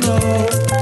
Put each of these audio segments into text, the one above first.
know.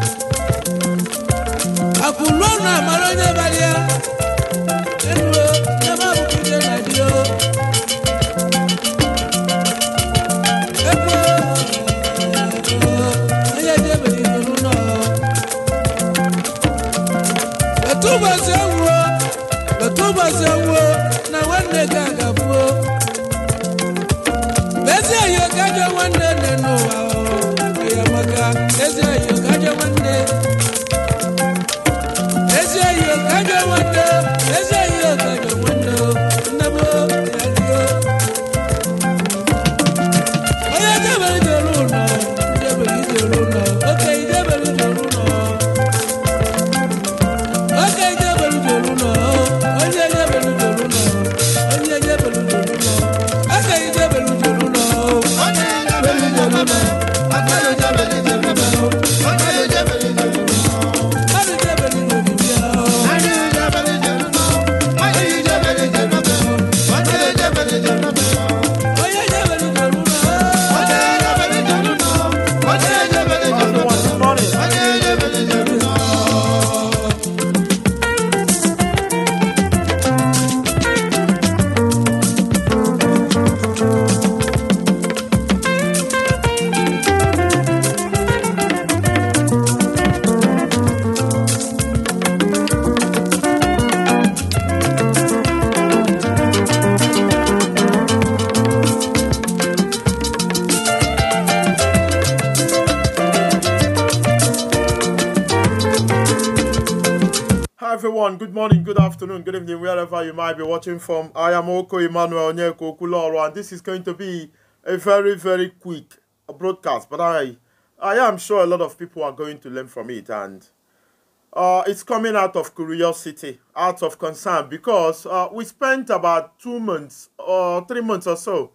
evening, wherever you might be watching from. I am Oko Emmanuel Onyeko Okuloro, and this is going to be a very, very quick broadcast. But I, I am sure a lot of people are going to learn from it, and uh, it's coming out of curiosity, out of concern, because uh, we spent about two months or uh, three months or so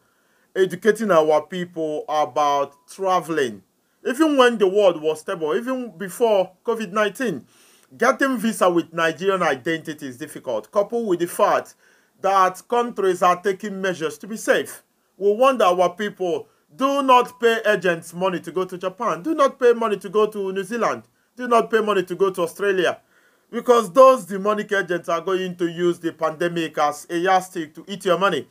educating our people about traveling. Even when the world was stable, even before COVID 19, getting visa with Nigerian identity is difficult, coupled with the fact that countries are taking measures to be safe. We wonder our people do not pay agents money to go to Japan, do not pay money to go to New Zealand, do not pay money to go to Australia, because those demonic agents are going to use the pandemic as a yardstick to eat your money.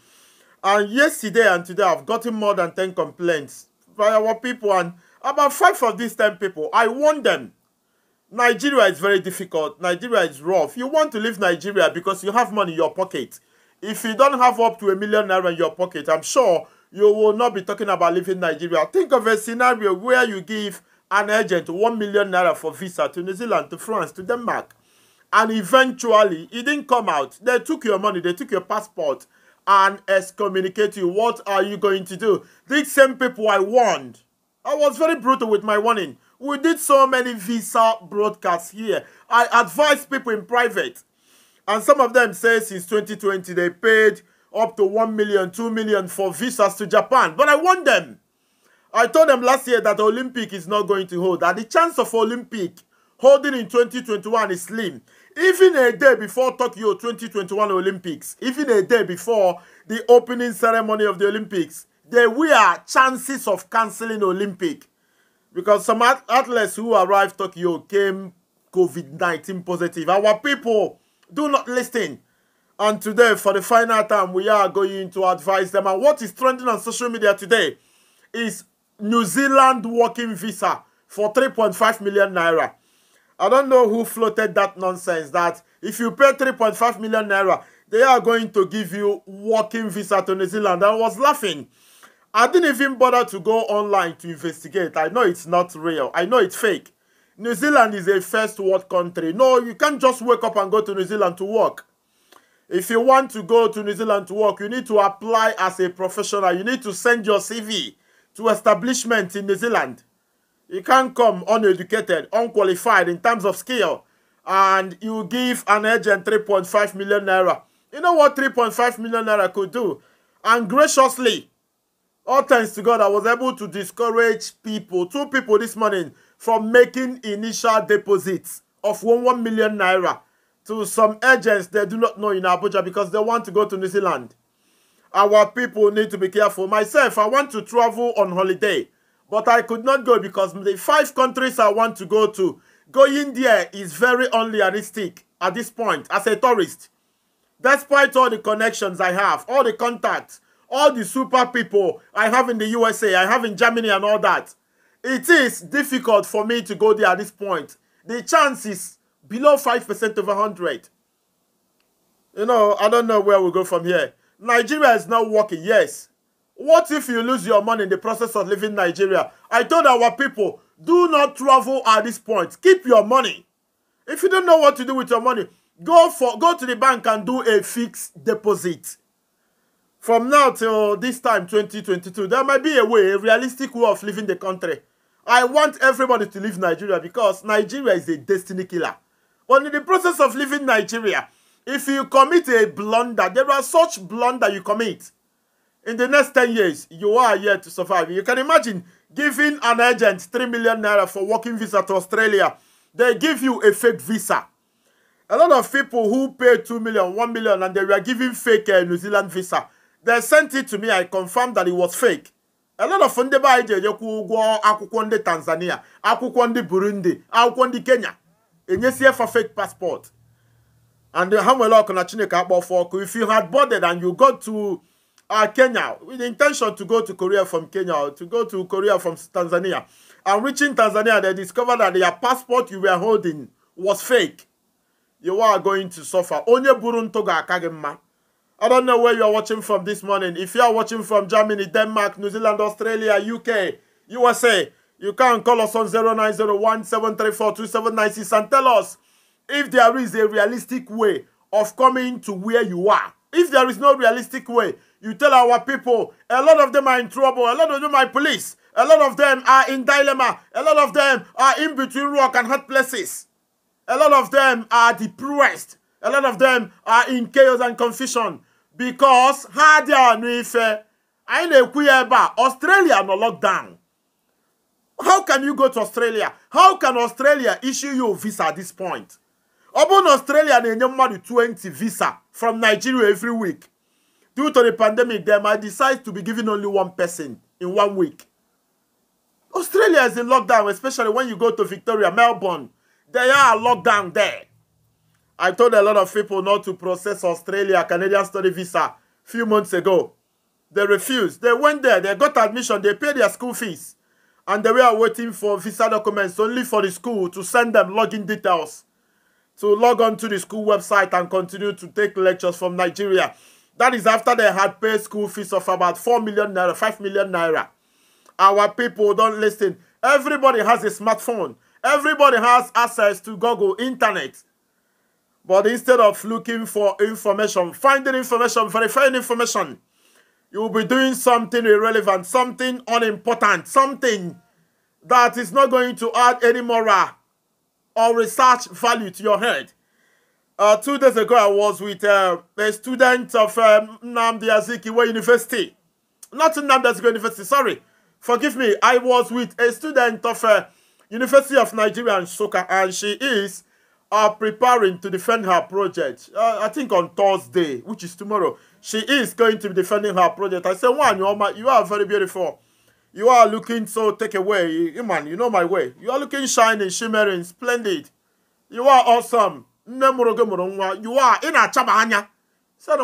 And yesterday and today, I've gotten more than 10 complaints by our people, and about five of these 10 people, I warned them Nigeria is very difficult. Nigeria is rough. You want to leave Nigeria because you have money in your pocket. If you don't have up to a million naira in your pocket, I'm sure you will not be talking about leaving Nigeria. Think of a scenario where you give an agent 1 million naira for visa to New Zealand, to France, to Denmark. And eventually, it didn't come out. They took your money, they took your passport and excommunicate you. What are you going to do? These same people I warned. I was very brutal with my warning. We did so many visa broadcasts here. I advise people in private. And some of them say since 2020 they paid up to 1 million, 2 million for visas to Japan. But I warn them. I told them last year that the Olympic is not going to hold. That the chance of Olympic holding in 2021 is slim. Even a day before Tokyo 2021 Olympics, even a day before the opening ceremony of the Olympics, there were chances of cancelling Olympic because some athletes who arrived Tokyo came COVID-19 positive. Our people do not listen. And today, for the final time, we are going to advise them. And what is trending on social media today is New Zealand working visa for 3.5 million naira. I don't know who floated that nonsense that if you pay 3.5 million naira, they are going to give you working visa to New Zealand. I was laughing I didn't even bother to go online to investigate. I know it's not real. I know it's fake. New Zealand is a first world country. No, you can't just wake up and go to New Zealand to work. If you want to go to New Zealand to work, you need to apply as a professional. You need to send your CV to establishment in New Zealand. You can't come uneducated, unqualified in terms of skill, and you give an agent 3.5 million naira. You know what 3.5 million naira could do? And graciously, all thanks to God, I was able to discourage people, two people this morning, from making initial deposits of one, 1 million naira to some agents they do not know in Abuja because they want to go to New Zealand. Our people need to be careful. Myself, I want to travel on holiday, but I could not go because the five countries I want to go to, going there is very unrealistic at this point as a tourist. Despite all the connections I have, all the contacts, all the super people I have in the USA, I have in Germany and all that. It is difficult for me to go there at this point. The chance is below 5% of 100. You know, I don't know where we go from here. Nigeria is not working, yes. What if you lose your money in the process of leaving Nigeria? I told our people, do not travel at this point. Keep your money. If you don't know what to do with your money, go for go to the bank and do a fixed deposit from now till this time, 2022, there might be a way, a realistic way of leaving the country. I want everybody to leave Nigeria because Nigeria is a destiny killer. But in the process of leaving Nigeria, if you commit a blunder, there are such blunder you commit. In the next 10 years, you are here to survive. You can imagine giving an agent 3 million naira for working visa to Australia. They give you a fake visa. A lot of people who pay 2 million, 1 million, and they were giving fake uh, New Zealand visa they sent it to me i confirmed that it was fake a lot of ndị be anyị ji ndị tanzania akwụkwọ ndị burundi akwụkwọ ndị kenya enyesie fa fake passport and ha nwere ọkụ na chineke akpọfụ if you had boarded and you got to uh, kenya with the intention to go to korea from kenya or to go to korea from tanzania and reaching tanzania they discovered that their passport you were holding was fake you are going to suffer onye buru toga ga I don't know where you are watching from this morning. If you are watching from Germany, Denmark, New Zealand, Australia, UK, USA, you can call us on 0901 and tell us if there is a realistic way of coming to where you are. If there is no realistic way, you tell our people, a lot of them are in trouble, a lot of them are police, a lot of them are in dilemma, a lot of them are in between rock and hard places. A lot of them are depressed. A lot of them are in chaos and confusion. because ha dị anụ ife anyị na-ekwu ya ebe a Australia nọ lockdown how can you go to Australia how can Australia issue you visa at this point ọ bụrụ na Australia na-enye mmadụ 20 visa from Nigeria every week due to the pandemic them I decide to be giving only one person in one week Australia is in lockdown especially when you go to Victoria Melbourne they are locked down there I told a lot of people not to process Australia Canadian study visa few months ago. They refused. They went there. They got admission. They paid their school fees. And they were waiting for visa documents only for the school to send them login details to log on to the school website and continue to take lectures from Nigeria. That is after they had paid school fees of about 4 million naira, 5 million naira. Our people don't listen. Everybody has a smartphone. Everybody has access to Google, internet. But instead of looking for information, finding information, verifying information, you will be doing something irrelevant, something unimportant, something that is not going to add any moral or research value to your head. Uh, two days ago, I was with uh, a student of um, Namdi Azikiwe University. Not Namdi Azikiwe University, sorry. Forgive me. I was with a student of uh, University of Nigeria and Soka, and she is are preparing to defend her project. Uh, I think on Thursday, which is tomorrow, she is going to be defending her project. I said, "One, you are very beautiful. You are looking so take away. You, man, you know my way. You are looking shining, shimmering, splendid. You are awesome. You are in a chabanya. So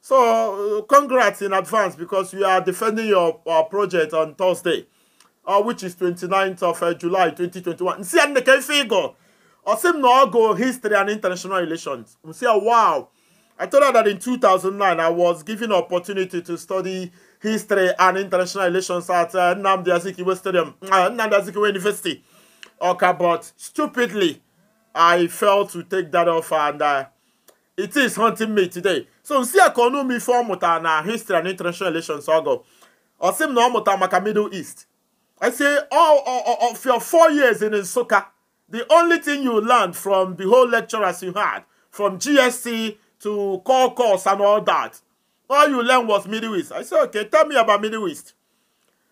So uh, congrats in advance because you are defending your, your project on Thursday uh, which is 29th of uh, July 2021. Nsi ya nneke ife igo. Osim na go history and international relations. Nsi ya wow. I told her that in 2009 I was given an opportunity to study history and international relations at uh, Nnamdi Azikiwe Stadium, uh, Nnamdi Azikiwe University. Okay, but stupidly, I failed to take that offer and uh, it is haunting me today. So nsi I konu mi fọ with na history and international relations seem Osim na ọ mụta maka Middle East. I say all, all, all of your four years in Soka, the only thing you learned from the whole lecturers you had, from GSC to core course and all that, all you learned was Middle East. I say, okay, tell me about Middle East.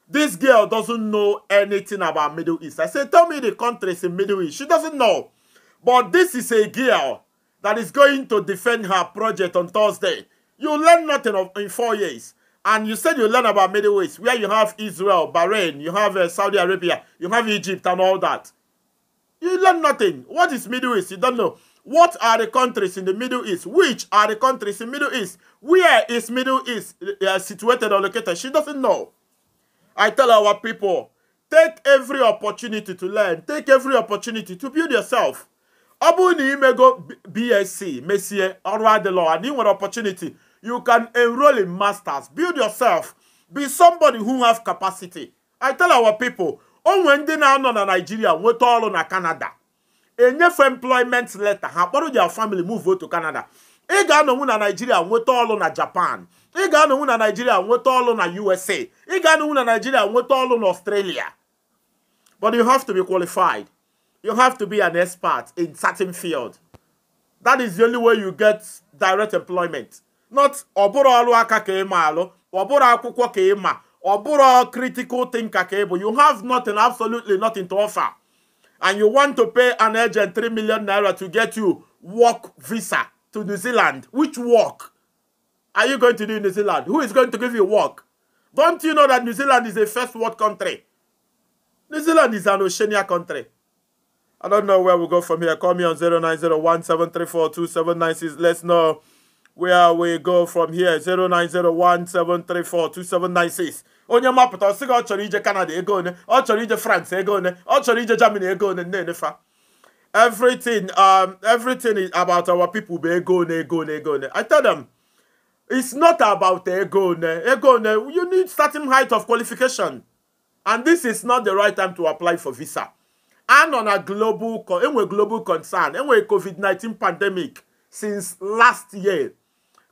This girl doesn't know anything about Middle East. I say, tell me the countries in Middle East. She doesn't know. But this is a girl that is going to defend her project on Thursday. You learn nothing of, in four years. And you said you learn about Middle East, where you have Israel, Bahrain, you have uh, Saudi Arabia, you have Egypt and all that. You learn nothing. What is Middle East? You don't know. What are the countries in the Middle East? Which are the countries in Middle East? Where is Middle East uh, uh situated or located? She doesn't know. I tell our people, take every opportunity to learn. Take every opportunity to build yourself. Abu bụrụ na BSc Messier, ọrụ adịlọ and ị nwere opportunity you can enroll in masters. Build yourself. Be somebody who has capacity. I tell our people, on ndị na-anọ na Nigeria nweta ọrụ na Canada. Enyefe employment letter. Ha kpọrọ your family move to Canada. Ị ga-anọnwu Nigeria nweta ọrụ na Japan. Ị ga-anọnwu Nigeria nweta ọrụ na USA. Ị ga-anọnwu Nigeria nweta ọrụ Australia. But you have to be qualified. You have to be an expert in certain field. That is the only way you get direct employment not ọbụrụ ọrụ aka ka ị alụ ọbụrụ akwụkwọ ka ị ọbụrụ critical thinker ka you have nothing absolutely nothing to offer and you want to pay an agent 3 million naira to get you work visa to New Zealand which work are you going to do in New Zealand who is going to give you work don't you know that New Zealand is a first world country New Zealand is an Oceania country I don't know where we go from here. Call me on 0901 Let's know where we go from here 09017342796 onye mapụta ọ sị gị ọ chọrọ ije Canada ego one ọ chọrọ ije France ego one ọ chọrọ ije Germany ego one na-enefa everything um, everything is about our people bụ ego one ego one ego one I tell them it's not about ego one ego one you need certain height of qualification and this is not the right time to apply for visa anọ na global enwe global concern enwe COVID-19 pandemic since last year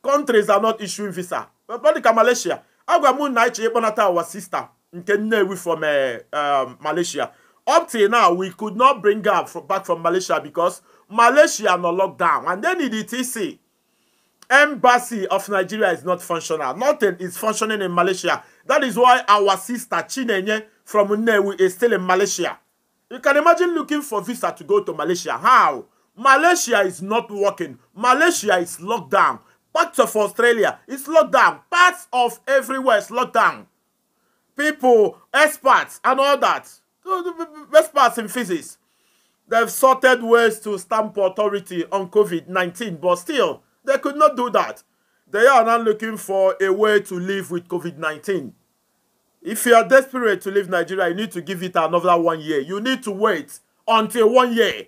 countries are not issuing visa But dị ka Malaysia agwa na ịchọ ịkpọnata our sister nke Nnewi from eh, um, Malaysia up till now we could not bring her back from Malaysia because Malaysia no lockdown and then the TC embassy of Nigeria is not functional nothing is functioning in Malaysia that is why our sister Chinenye from Nnewi is still in Malaysia you can imagine looking for visa to go to Malaysia how Malaysia is not working Malaysia is locked down Much of Australia is locked down. Parts of everywhere is locked down. People, experts, and all that. Experts in physics. They've sorted ways to stamp authority on COVID 19, but still, they could not do that. They are now looking for a way to live with COVID 19. If you are desperate to leave Nigeria, you need to give it another one year. You need to wait until one year,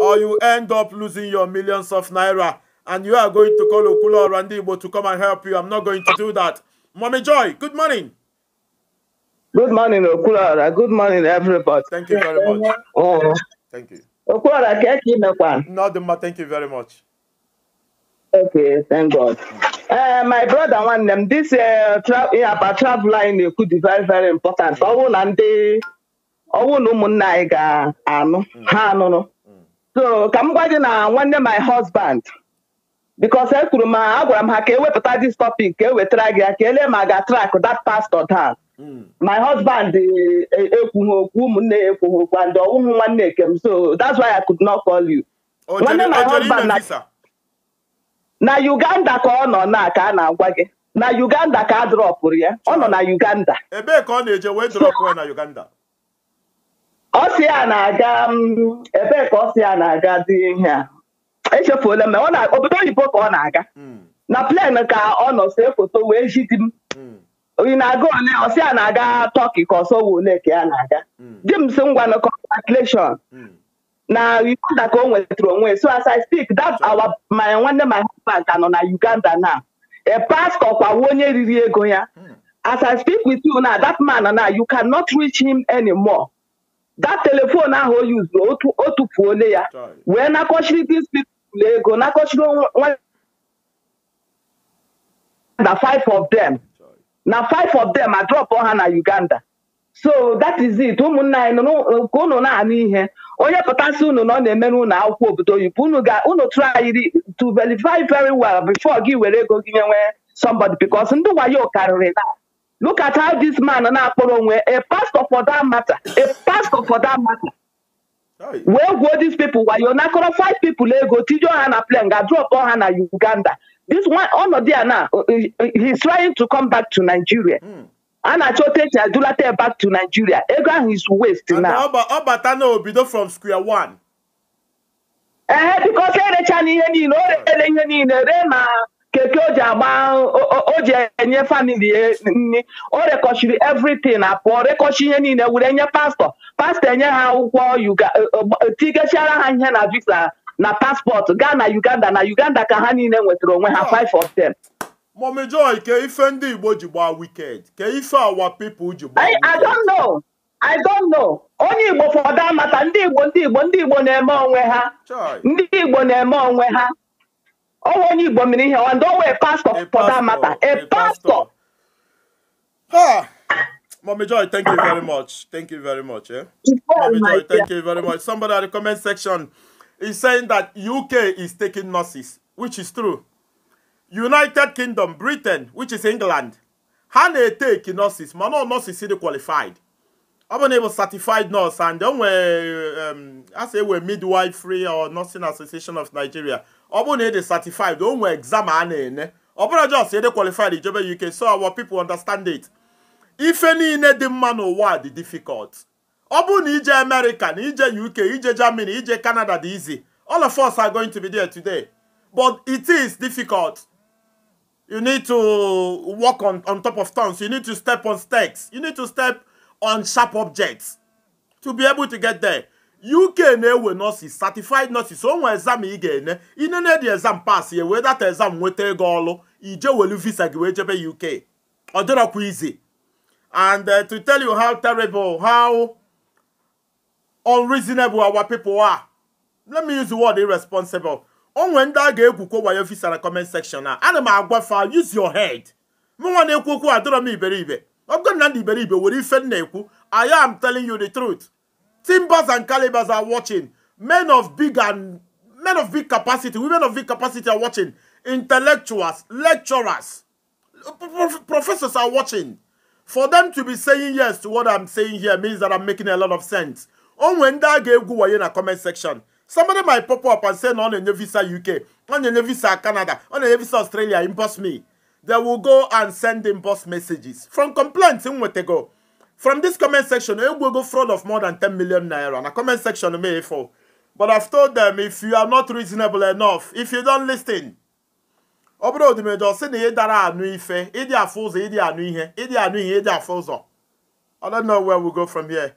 or you end up losing your millions of naira and you are going to call Okula or Randibo to come and help you. I'm not going to do that. Mommy Joy, good morning. Good morning, Okulara. Good morning, everybody. Thank you very much. Oh. Thank you. Okulara, catch you Not the thank you very much. Okay, thank God. Uh, my brother, one them this uh, tra- yeah, but travel line could be very, very important. Mm. Oh, and they, oh, no, Munaiga, um, mm. So, come, na, one day my husband. Mm. because ekwuru ma a gwara m ha ka ewepụta dis topic ka ewetara gị ya ka e ma ga track that pastor down hmm. my husband e, e, ekwughị okwu ụmụnne ya ekwughị okwu and ọwụghị nwanne ekem so that's why I could not call you nwanne my husband na Uganda ka ọ nọ na ka a na-agwa gị na Uganda ka a dropụrụ ya ọ nọ na Uganda ebee ka ọ na-eje wee dropụ ya na Uganda ọ sị ya na-aga mm, ebee ka ọ sị ya na-aga dị ihe a echefuola m na ọ na obodo oyibo ka ọ na-aga hmm. na plen ka ọ nọ see foto wee jidi m onye hmm. na-aga ole ọsị a na-aga tọki ka ọsọ wụ ole ka ya na-aga hmm. di m si ngwa na congratulation na uganda ka o nwetara onwe so as I speak that our my nwanne my husband ka nọ na uganda na a pastor kwawo onye riri ego ya as I speak with you now that man na you cannot reach him anymore that telephone ahụ o yuzu otu otu otufuole ya wee nakọchiri this people na ego nakọchigo na five of them na five of them adrọpụ ha na Uganda so that is it ụmụnna anyị ka unu na-anụ ihe onye pụtasị unu na ọ na-emere unu akwụkwọ obodo oyibo unu ga unu try to verify very well before gị were ego gị nyenwe somebody because ndị wayo karịrị na look at how this man na-akpọrọ onwe a pastor for that matter a pastor for that matter wee gwuo dis people wayo nakọrọ five people ego tijo ha na plane ga drop ha na uganda this one ọnọdụ ya na he is trying to come back to nigeria hmm. a na-achọ otu eji adulata back to nigeria ego ahụ is waste na ọ bata na obido from square one ee eh, bikos e erecha na ihe niile o reele ihe niile ree na keke o ji agba o ji enye famili ya o rekọchiri everything apụọ rekọchi ihe niile were nye pastọ pastọ enye ha akwụkwọ eh, eh, eh, tigechara ha ihe na visa na paspọtụ gaa na uganda na uganda ka ha niile nwetara onwe ha 5 of 10 Mọmi Joy ke ife ndị Igbo ji gbaa wicked ke ife awa people ji gbaa wicked I don't know I don't know onye Igbo fọdụ amata ndị Igbo ndị Igbo ndị Igbo na-eme onwe ha ndị Igbo na-eme onwe ha onye here. mere don't ndị a pastor for that matter a pastor. Ha! Mommy Joy, thank you very much. Thank you very much. Eh? Mommy Joy, thank you very much. Somebody at the comment section is saying that UK is taking nurses, which is true. United Kingdom, Britain, which is England, how they take nurses mana nurse nurses dị qualified I've been able to certified nurse and then I um, we're midwife free or nursing association of Nigeria Obu bụrụ de certified o nwee exam a na-ene ọ bụrụ just ịdị qualified ijebe ya ike so our people understand it ife niile dị mma n'ụwa dị difficult Obu bụrụ ije America na ije UK ije Germany ije Canada dị easy all of us are going to be there today but it is difficult you need to walk on, on top of stones. you need to step on stakes you need to step on sharp objects to be able to get there uk na-ewe nurses certified nurses onwe exam ị ga-ene inene dị exam pass ya wee data exam nweta ego ọlụ ije welu visa gị wee jebe uk ọ dịrọkwa izi and uh, to tell you how terrible how unreasonable our people are let me use the word irresponsible o ndị a ga-egwukwo wayo visa na comment section a ana m agwa fa use your head mụnwa na-ekwu okwu adịrọ iberibe ọ na iberibe were ife nna ekwu I am telling you the truth Timbers and calibers are watching. Men of big and men of big capacity, women of big capacity are watching. Intellectuals, lecturers, professors are watching. For them to be saying yes to what I'm saying here means that I'm making a lot of sense. On when that gave go in a comment section. some of them might pop up and say, no, on a visa UK, on a visa Canada, on a visa Australia, impose me. They will go and send impost messages from complaints in go. From this comment section, you will go fraud of more than 10 million naira. And a comment section may fall. But I've told them if you are not reasonable enough, if you don't listen, Obro di mejo si ni dara anu ife, idi afuzo, idi anu ihe, idi anu ihe, idi afuzo. I don't know where we go from here.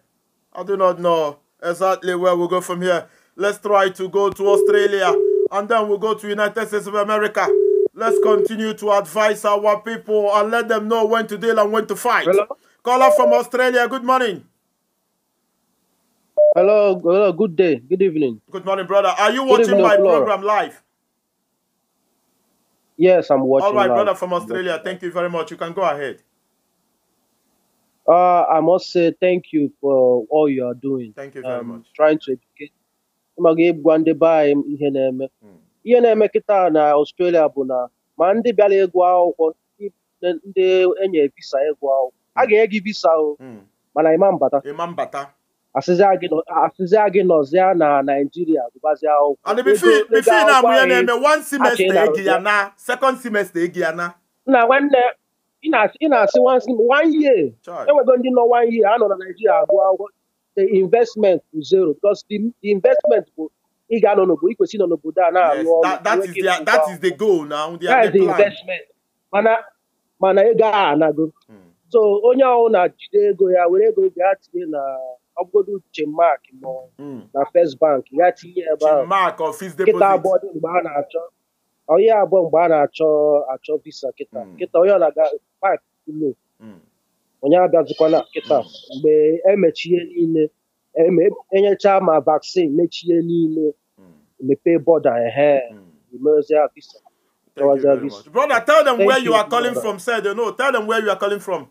I do not know exactly where we go from here. Let's try to go to Australia and then we'll go to United States of America. Let's continue to advise our people and let them know when to deal and when to fight. Hello? Caller from Australia, good morning. Hello, hello, good day, good evening. Good morning, brother. Are you watching evening, my Flora. program live? Yes, I'm watching. All right, live. brother from Australia, thank you very much. You can go ahead. Uh, I must say thank you for all you are doing. Thank you very um, much. Trying to educate. ma ga-egwa ndị be anyị ihe na-eme hmm. ihe na-eme kịta na Australia bụ na ma ndị bịara ịgụ akwụkwọ ndị enye visa ịgụ akwụkwọ a hmm. ga-enye gị visa o hmm. mana ịma mbata ịma gị nọzịa na Naịjirịa gụbazịa akwụkwọ na nwanne ị na-asị one year enwego ndị nọ one year a na naijiria agụ akwụkwọ the investment bụ zero because the investment bụ ị ga-anọ n'obodo ikwesị nọ n'obodo a na-arụ ọrụ that is the investment mana ego a anago hmm. so onye ahụ na-jide ego ya were ego ya tinye na uche chemak ma hmm. na first bank ya tinye ebe ahụ kịta abụọ dị mgbe a na-achọ onye abụọ mgbe a na-achọ achọ visa kịta hmm. kịta onye ọ aga pak ulo hmm. onye abịazikwana kịta mgbe emechie niile enyecha ma vaksin mechie niile e e mepee bọda ehe emezie visa Thank you very much. Brother, tell them Thank where you, you are calling from. Say they know. Tell them where you are calling from.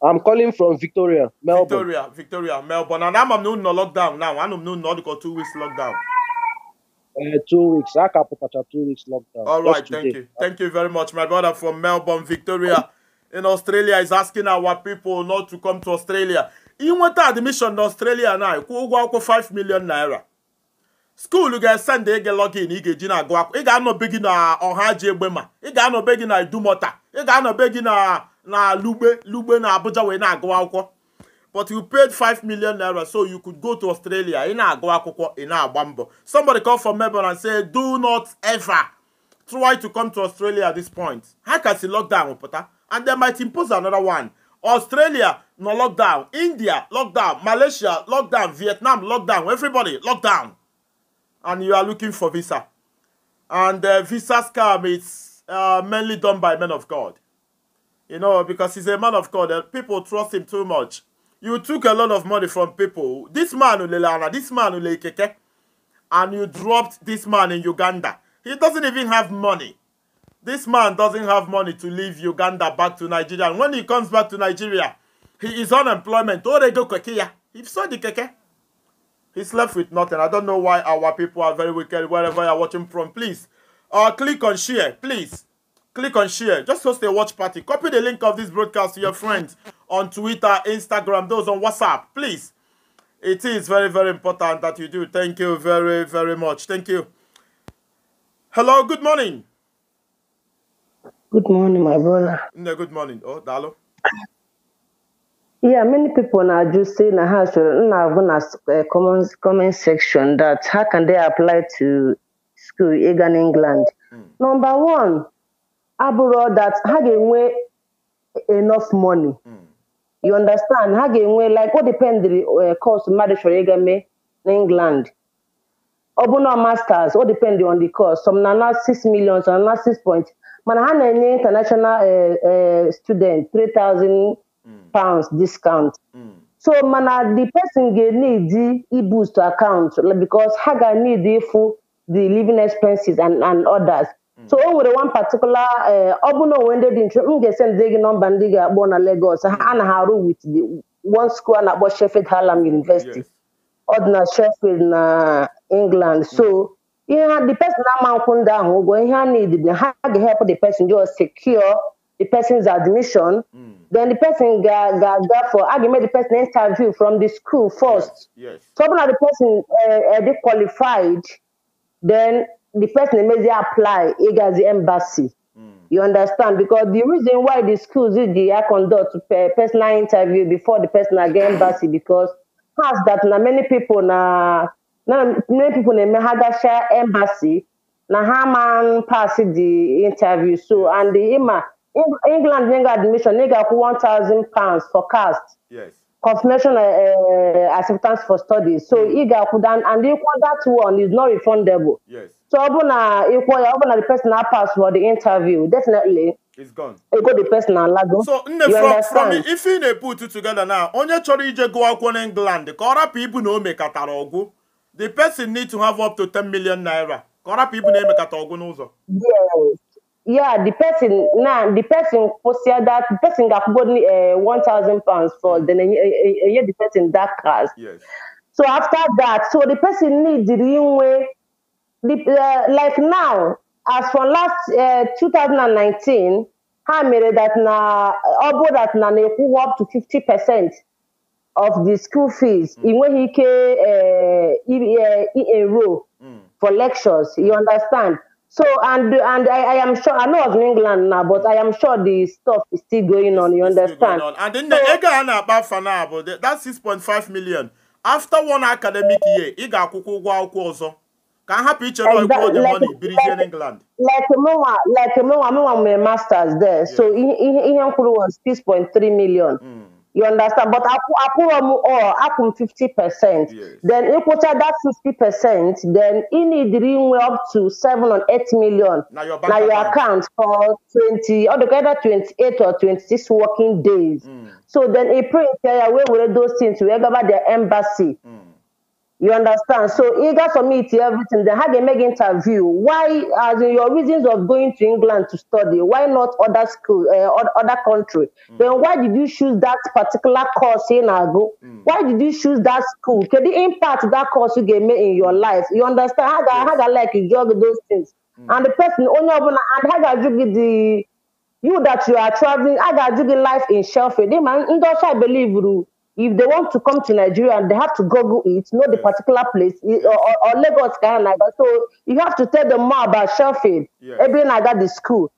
I'm calling from Victoria, Melbourne. Victoria, Victoria, Melbourne. And I'm no no lockdown now. I'm no no two weeks lockdown. Uh, two weeks. I can put two weeks lockdown. All right, thank today. you. Thank you very much. My brother from Melbourne, Victoria in Australia is asking our people not to come to Australia. Inweta admission na Australia now. Kwụ ụgwọ akwụkwọ 5 million naira. School ga-esend ị ga-login ị ga-eji na-agụ akwụkwọ. Ị ga-anọbe gị na ọha ji egbe ma. Ị ga-anọbe gị na idumọta. Ị ga-anọbe gị na na lugbe lugbe na abuja wee na-agụ akwụkwọ but you paid 5 million naira so you could go to australia ị na-agụ akwụkwọ ị na-agba somebody call from melbourne and say do not ever try to come to australia at this point ha ka si lockdown pụta and they might impose another one australia no lockdown india lockdown malaysia lockdown vietnam lockdown everybody lockdown and you are looking for visa and uh, visa scam is uh, mainly done by men of god You know, because he's a man of God and people trust him too much. You took a lot of money from people. This man, Ulelana, this man, Ulekeke, and you dropped this man in Uganda. He doesn't even have money. This man doesn't have money to leave Uganda back to Nigeria. And when he comes back to Nigeria, he is unemployment. go Kekia. If so, the He's left with nothing. I don't know why our people are very wicked wherever you're watching from. Please, uh, click on share, please click on share. Just host a watch party. Copy the link of this broadcast to your friends on Twitter, Instagram, those on WhatsApp. Please. It is very, very important that you do. Thank you very, very much. Thank you. Hello, good morning. Good morning, my brother. No, good morning. Oh, Dalo. Yeah, many people now just say in how should now gonna eh, comment comment section that how can they apply to school in England? Mm. Number one, abụrụ that ha ga-enwe enough money hmm. you understand ha ga-enwe like o the eh, course mmadụ chọrọ ịga mee na England ọ bụ na masters o depend on the course some na na 6 million some na 6 point mana ha na-enye international eh, eh, student 3000 hmm. pounds discount hmm. so mana the person ga need i-boost account because ha ga need ịfụ the living expenses and and others so o nwere one particular eh, ọ bụ na onwe ndị dị nchụ m ga-esendị gị nọmba ndị ga-akpọ na Lagos ha na ha arụ with the one school a na-akpọ Sheffield Hallam University ọdịna dị na Sheffield na England so ihe the person na-ama nkwụ ndị ahụ ụgwọ ihe a need ha ga-help the person just secure the person's admission mm. then the person ga ga ga for ga make the person interview from the school first yes, yes. so when the person uh, uh, the qualified then the person emezie apply ịgazi embassy hmm. you understand because the reason why the schools use the air conduct personal interview before the person again embassy because pass that na many people na na many people na eme ha share embassy na how man pass the interview so and the ima england nye admission nye ga one thousand pounds for cast yes. confirmation uh, acceptance for studies. so ị ga akwụ that and ịkwụ that one is not refundable yes. So ọ bụ na ịkwọ ya ọ na the personal pass for the interview definitely It's gone. Ego the personal alago. So nne from, from if you ne na-put it together now onye chọrọ ije gụọ akwụkwọ na England the ọ people know na o mekatara the person need to have up to 10 million naira ka people rapụ ibu na emekata ọgwụ Yes. Yeah, the person now the person kwụsịa that the person ga-akwụgo uh, 1000 pounds for then enye the person that class. Yes. So after that so the person need the inwe the, uh, like now as from last uh, 2019 ha mere that na ọ that na na-ekwuwa up to 50 percent of the school fees hmm. ị nweghị ike uh, uh, enroll hmm. for lectures you understand so and and I, I am sure I know of England now but I am sure the stuff is still going on you understand on. and then the ego a na-akpa afa na abụ that 6.5 million after one academic year ị ga-akwụkwọ ụgwọ akwụkwọ ọzọ ka a hapụ ichere ikwu oge money biri jee n'england lekmụnwa lekmụnwa mụnwa nwere masters there so ihe m kwuru was 6.3 million hmm. you understand but akwụrọ m all akwụ m 50 percent then ịkwụcha that 50 percent then ị nidiri inwe up to 7 or 8 million na your, na your account for 20 or either 28 or 26 working days mm. so then a pray ya wee were those things wee gaba their embassy mm. You understand? So eager for me to everything. Then how they make interview? Why, as in your reasons of going to England to study? Why not other school, uh, other country? Mm. Then why did you choose that particular course in Ago? Mm. Why did you choose that school? Can the impact that course you gave me in your mm. life? You understand? How yes. how like you juggle those things? Mm. And the person only and how you juggle the you that you are traveling? How you juggle life in Sheffield? They man, I believe you if they want to come to Nigeria and they have to Google it, know the yes. particular place, or, or, or Lagos, Ghana. So you have to tell them more about Sheffield, yes. Eben, I got the school.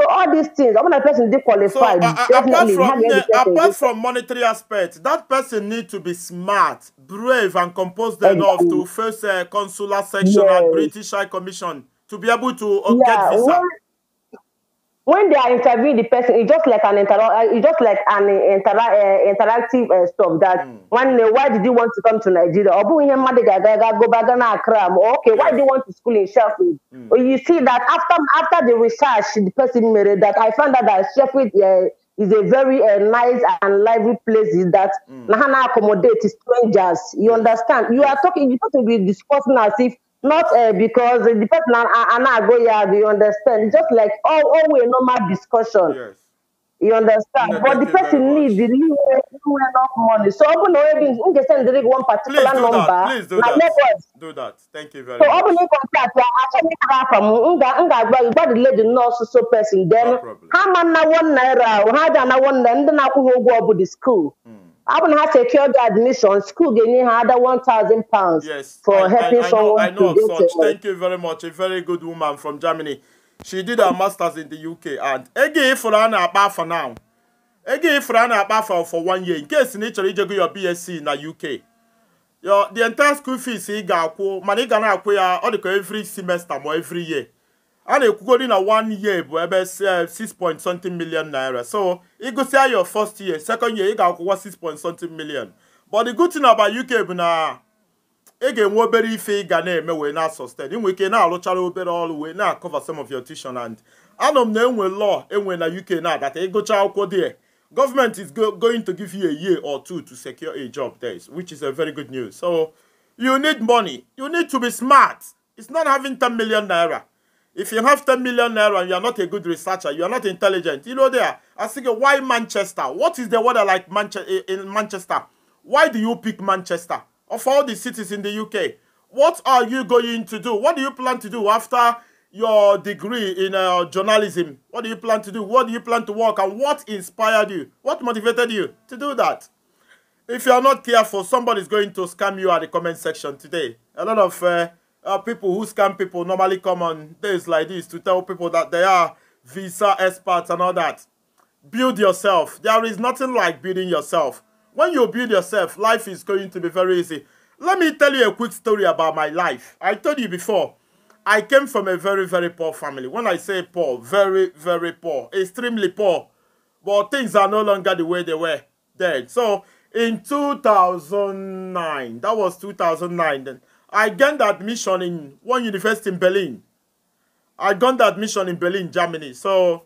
So all these things, when a person they qualify, so, uh, apart, from, uh, apart from monetary aspects, that person need to be smart, brave, and composed enough to face a consular section yes. and British High Commission to be able to uh, yeah. get visa. Well, when they are interviewing the person, it's just like an inter- uh, it's just like an uh, inter- uh, interactive uh, stuff that mm. when uh, why did you want to come to Nigeria? Or go back and Okay, why do you want to school in Sheffield? Mm. you see that after after the research the person made that I found out that Sheffield uh, is a very uh, nice and lively place that mm. accommodate strangers. You understand? You are talking you talking with be discussing as if not uh, because the person and I go yeah, do you understand? Just like all always normal discussion. Yes. You understand? but the person needs the new enough money. So I'm already in the send one particular number. Please do that. Do that. Thank you very so much. So I'm in contact. from nga nga gba the lady nurse so person. Then how man na one naira? How na one naira? Then I go I'm gonna have to secure the admission. School gave me another one thousand pounds yes, for I, helping I, I someone. I know, I know such. Thank you very much. A very good woman from Germany. She did her masters in the UK and again for an about for now. Again for an about for, for one year in case in nature you go your BSc in the UK. Your the entire school fees ị ga-akwụ mana ị ga na-akwụ ya ọ dịka every semester ma every year a na-ekwugodi na one year bụ ebe 6 eh, point something million naira so ịgụsịa your first year second year ị ga-akwụkwọ 6 point something million but the good thing about UK bụ na ị ga-enwe obere ife ị ga na-eme wee na sustain inwe ike na-alụchara obere ọrụ wee na-akọva some of your tuition and anọ m na enwe law enwe na UK na-adata ịgụcha akwụkwọ dị government is going to give you a year or two to secure a job there which is a very good news so you need money you need to be smart it's not having 10 million naira If you have 10 million naira and you are not a good researcher, you are not intelligent, you know there. I think why Manchester? What is the weather like Manche eh, in Manchester? Why do you pick Manchester? Of all the cities in the UK, what are you going to do? What do you plan to do after your degree in uh, journalism? What do you plan to do? What do you plan to work? And what inspired you? What motivated you to do that? If you are not careful, somebody is going to scam you at the comment section today. A lot of uh, uh, people who scam people normally come on days like this to tell people that they are visa experts and all that. Build yourself. There is nothing like building yourself. When you build yourself, life is going to be very easy. Let me tell you a quick story about my life. I told you before, I came from a very, very poor family. When I say poor, very, very poor, extremely poor. But things are no longer the way they were then. So in 2009, that was 2009 then. I gained admission in one university in Berlin. I gained admission in Berlin, Germany. So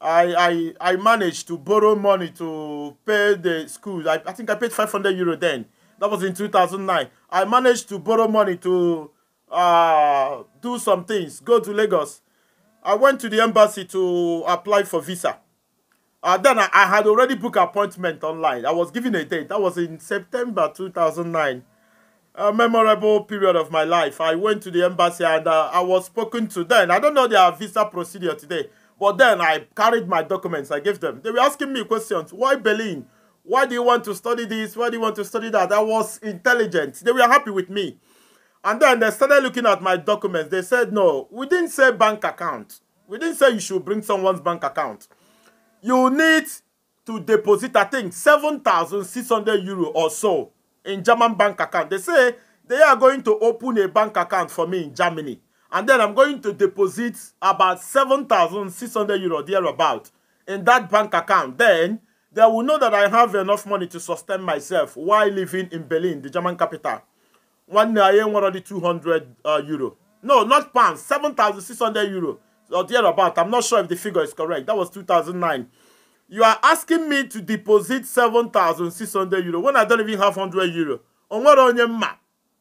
I, I, I managed to borrow money to pay the school. I, I think I paid 500 euro then. That was in 2009. I managed to borrow money to uh, do some things, go to Lagos. I went to the embassy to apply for visa. Uh, then I, I had already booked appointment online. I was given a date. That was in September 2009 a memorable period of my life. I went to the embassy and uh, I was spoken to then. I don't know their visa procedure today, but then I carried my documents. I gave them. They were asking me questions. Why Berlin? Why do you want to study this? Why do you want to study that? I was intelligent. They were happy with me. And then they started looking at my documents. They said, no, we didn't say bank account. We didn't say you should bring someone's bank account. You need to deposit, I think, 7,600 euro or so in German bank account. They say they are going to open a bank account for me in Germany. And then I'm going to deposit about 7,600 euro thereabout in that bank account. Then they will know that I have enough money to sustain myself while living in Berlin, the German capital. One I am 200 uh, euro. No, not pounds, 7,600 euro or thereabout. I'm not sure if the figure is correct. That was 2009. You are asking me to deposit 7,600 euro when I don't even have 100 euro. Onwere onye mma.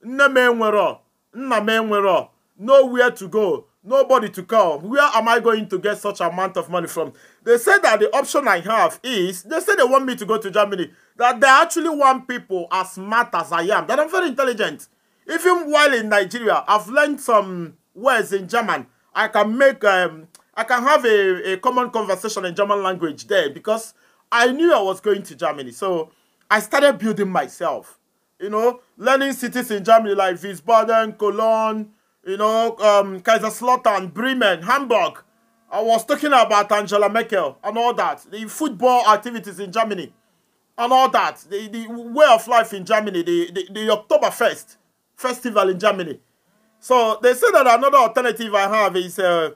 Nne m enwere. Nna m enwere. Nowhere to go. Nobody to call. Where am I going to get such amount of money from? They say that the option I have is, they say they want me to go to Germany. That they actually want people as smart as I am. That I'm very intelligent. Even while in Nigeria, I've learned some words in German. I can make um, I can have a, a common conversation in German language there because I knew I was going to Germany. So I started building myself, you know, learning cities in Germany like Wiesbaden, Cologne, you know, um, Kaiserslautern, Bremen, Hamburg. I was talking about Angela Merkel and all that, the football activities in Germany and all that, the, the way of life in Germany, the, the, the Oktoberfest festival in Germany. So they say that another alternative I have is uh,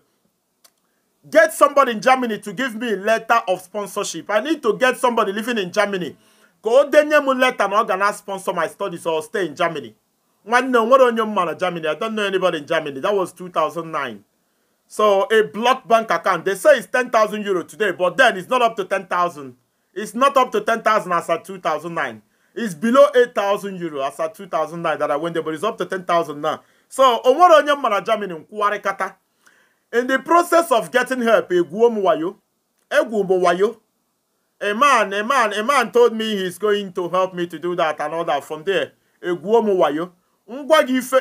Get somebody in Germany to give me a letter of sponsorship. I need to get somebody living in Germany. Go denye mu letter na going sponsor my studies or stay in Germany. One no what on your man Germany. I don't know anybody in Germany. That was 2009. So a blocked bank account. They say it's 10,000 euro today, but then it's not up to 10,000. It's not up to 10,000 as at 2009. It's below 8,000 euro as at 2009 that I went there, but it's up to 10,000 now. So, Omoro Onyem Mara Germany, Nkwari Kata. In the process of getting help, a man, a man, a man told me he's going to help me to do that and all that. From there, Eguomwayo,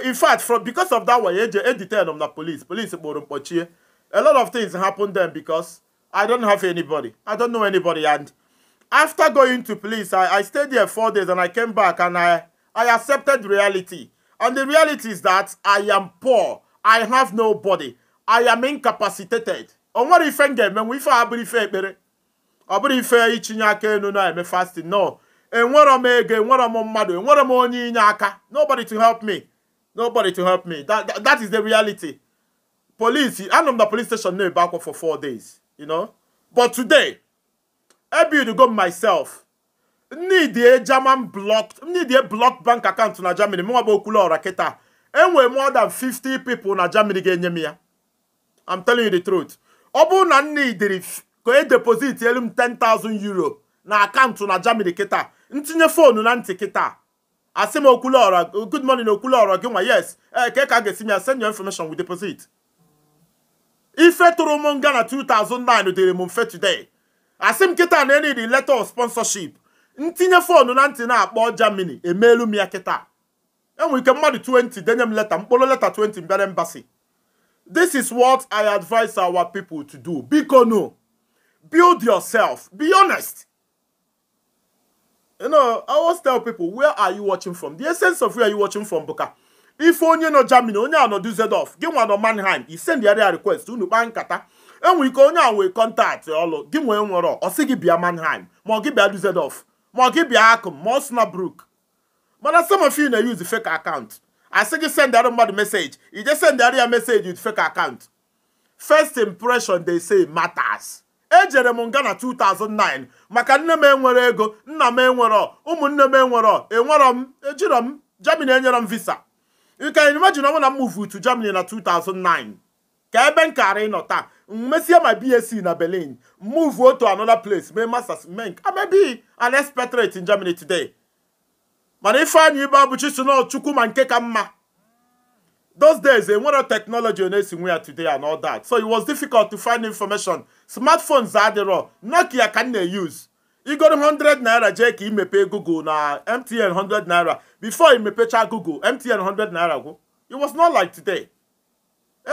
in fact, from because of that way, they detained on the police. Police A lot of things happened then because I don't have anybody. I don't know anybody. And after going to police, I, I stayed there four days and I came back and I, I accepted reality. And the reality is that I am poor. I have nobody. I am incapacitated o nwere ife m ga ife a ife ekpere ọ bụrụ ife itinye aka elu na-eme fasting no enwere m ego enwere m mmadụ enwere m onye inye aka nobody to help me nobody to help me that, that, that is the reality police anọ m na police station na-ebe akwa for four days you know but today I build go myself need a German blocked need a blocked bank account na Germany mụnwa bụ okwulu ọra enwere more than 50 people na Germany ga-enye m ya I'm telling you the truth. ọ bụrụ na nne idiri ka e deposit elu m 10,000 euro na akaụntụ na Germany kịta ntinye foonu na ntị kịta asị m okwule ọrọ good morning okwule ọrọ gị nwa yes e, ee ka ka a ga-esi m ya send your information with deposit ife tụrụ m nga na 2009 dịrị m mfe today asị m kịta na enidi letter of sponsorship ntinye foonu na ntị na-akpọ Germany emeelu m ya kịta enwere ike mmadụ 20 denye m leta mkpụrụ leta 20 mbịara mbasi. This is what I advise our people to do. Bikono, build yourself. Be honest. You know, I always tell people, where are you watching from? The essence of where are you watching from, Buka? If onye no Germany, onye no ano Düsseldorf, Give one no Mannheim, He send the area request, unu kpaa nkata. Enwe ike onye a nwee kọntaktị ọlụ, gị nwee nwere ọ sị gị bịa Mannheim, ma ọ a do Düsseldorf, ma ọ gị bịa Akụm, ma ọ Snapbrook. Mana some of you na-use the fake account. asị gị sendarụ mmadụ meseji je sendarụ ya meseji with fek account first impression they say matas ejere m nga na 2009 maka nne m enwere ego nna m enwere ụmụnne m enwere enwero m ejiro m Germany enyere m visa you can imagine ọnwụ na m move Germany na 2009 ka ebe m kara ịnọ taa mesie my BSc na Berlin move otu another place mee masters menk nke amebi an expatriate in Germany today mana ifeanyị ibe abụchi si n'ọchukwu ma nke ka mma those days enwere eh, technology ọ na-esi nwe ya today and all that so it was difficult to find information smartphones adịrọ oh. nokia ka m na-use igoro 100 naira jee ka imepe google na mtn 100 naira before imepecha google mtn 100 naira gwụ it was not like today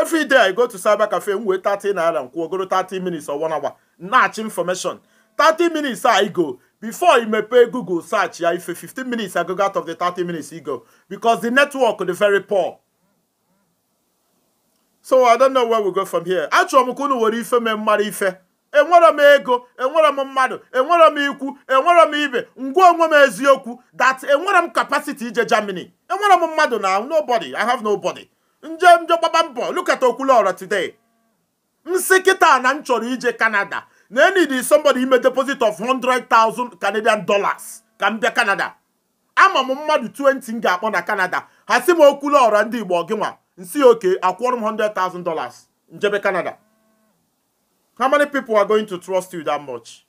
every day i go to cyber cafe m wee 30 naira nkwụ ogoro 30 minutes or one hour na-achị information 30 minutes a igo before you pay google search ya ife 15 minutes i go out of the 30 minutes you go because the network is very poor so i don't know where we go from here achọrọ m were ife mee mmara ife enwere m ego enwere m mmadu enwere m ikwu enwere m ibe ngwa onwe m eziokwu that enwere m capacity ije germany enwere m mmadu na nobody i have nobody nje nje gbaba mbọ look at okwulu today nsị kịta na ije canada Then Nene is somebody who made a deposit of 100,000 Canadian dollars. Kambia Canada. I'm a mmadu 20 nga akpọ na Canada. Hasi Kula okwu lọrọ ndị Igbo see, okay, oke akwụrụ m 100,000 dollars. Njebe Canada. How many people are going to trust you that much?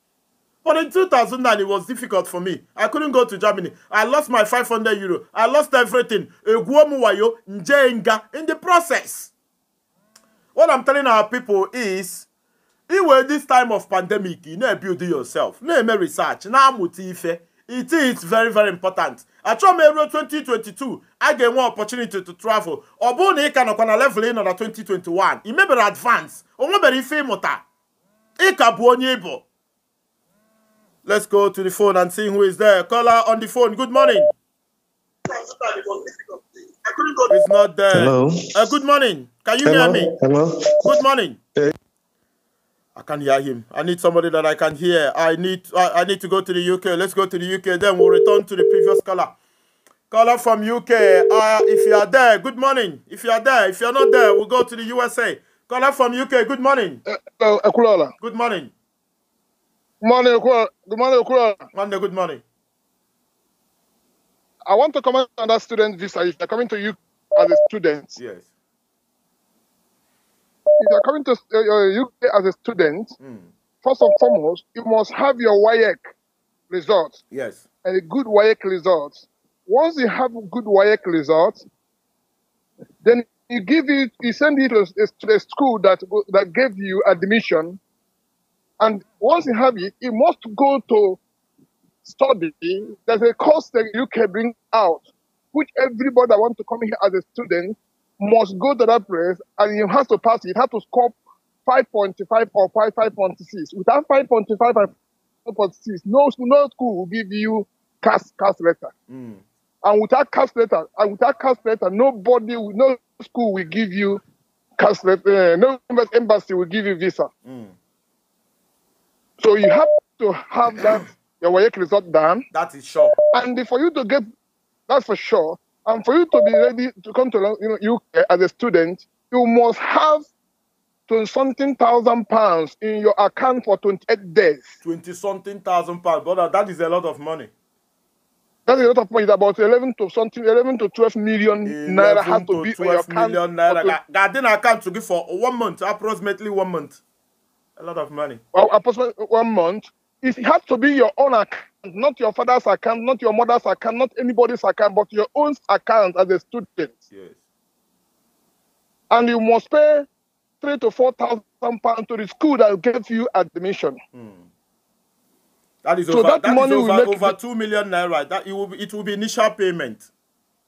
But in 2009, it was difficult for me. I couldn't go to Germany. I lost my 500 euro. I lost everything. In the process. What I'm telling our people is iwe this time of pandemic you na-ebuild yourself na-eme research na-amụta ife it is very very important achọghị m eruo 2022 a ga-enwe opportunity to travel ọ bụrụ na ị ka nọkwa na level ị nọ na 2021 ị mebere advance o nwebere ife ịmụta ị ka bụ onye ịbụ let's go to the phone and see who is there caller on the phone good morning it's not there hello. Uh, good morning can you hello. hear me hello good morning hey. I can't hear him. I need somebody that I can hear. I need I, I need to go to the UK. Let's go to the UK. Then we'll return to the previous caller. Caller from UK. Uh, if you are there, good morning. If you are there, if you are not there, we'll go to the USA. Caller from UK. Good morning. Uh, hello, uh, Akulola. Good morning. Morning, Good morning, Monday, good morning. I want to comment on that student visa. If you're coming to UK as a student, yes if you're coming to uh, UK uh, as a student, mm. first and foremost, you must have your WAEC results. Yes. And a good WAEC results. Once you have good WAEC results, then you give it, you send it to, to the school that that gave you admission. And once you have it, you must go to study. There's a course that UK bring out, which everybody that wants to come here as a student must go to that place and you have to pass it. You to score 5.5 or 5.56. 5.6. Without 5.5 or 5.6, no, no school will give you cast, cast letter. Mm. And without cast letter, and without cast letter, nobody, will, no school will give you cast letter. Uh, no embassy will give you visa. Mm. So you have to have that your work result done. That is sure. And for you to get, that's for sure. And for you to be ready to come to you know, UK as a student, you must have twenty something thousand pounds in your account for 28 days. 20 something thousand pounds, brother, that is a lot of money. That is a lot of money. It's about 11 to something, 11 to 12 million 11 naira has to, to be your account. naira. That then account to give for one month, approximately one month. A lot of money. Well, approximately one month. It has to be your own account not your father's account, not your mother's account, not anybody's account, but your own account as a student. Yes. And you must pay three to four thousand pounds to the school that gave you admission. Mm. That is so over, that, that money is over, over two million naira. That it will be, it will be initial payment.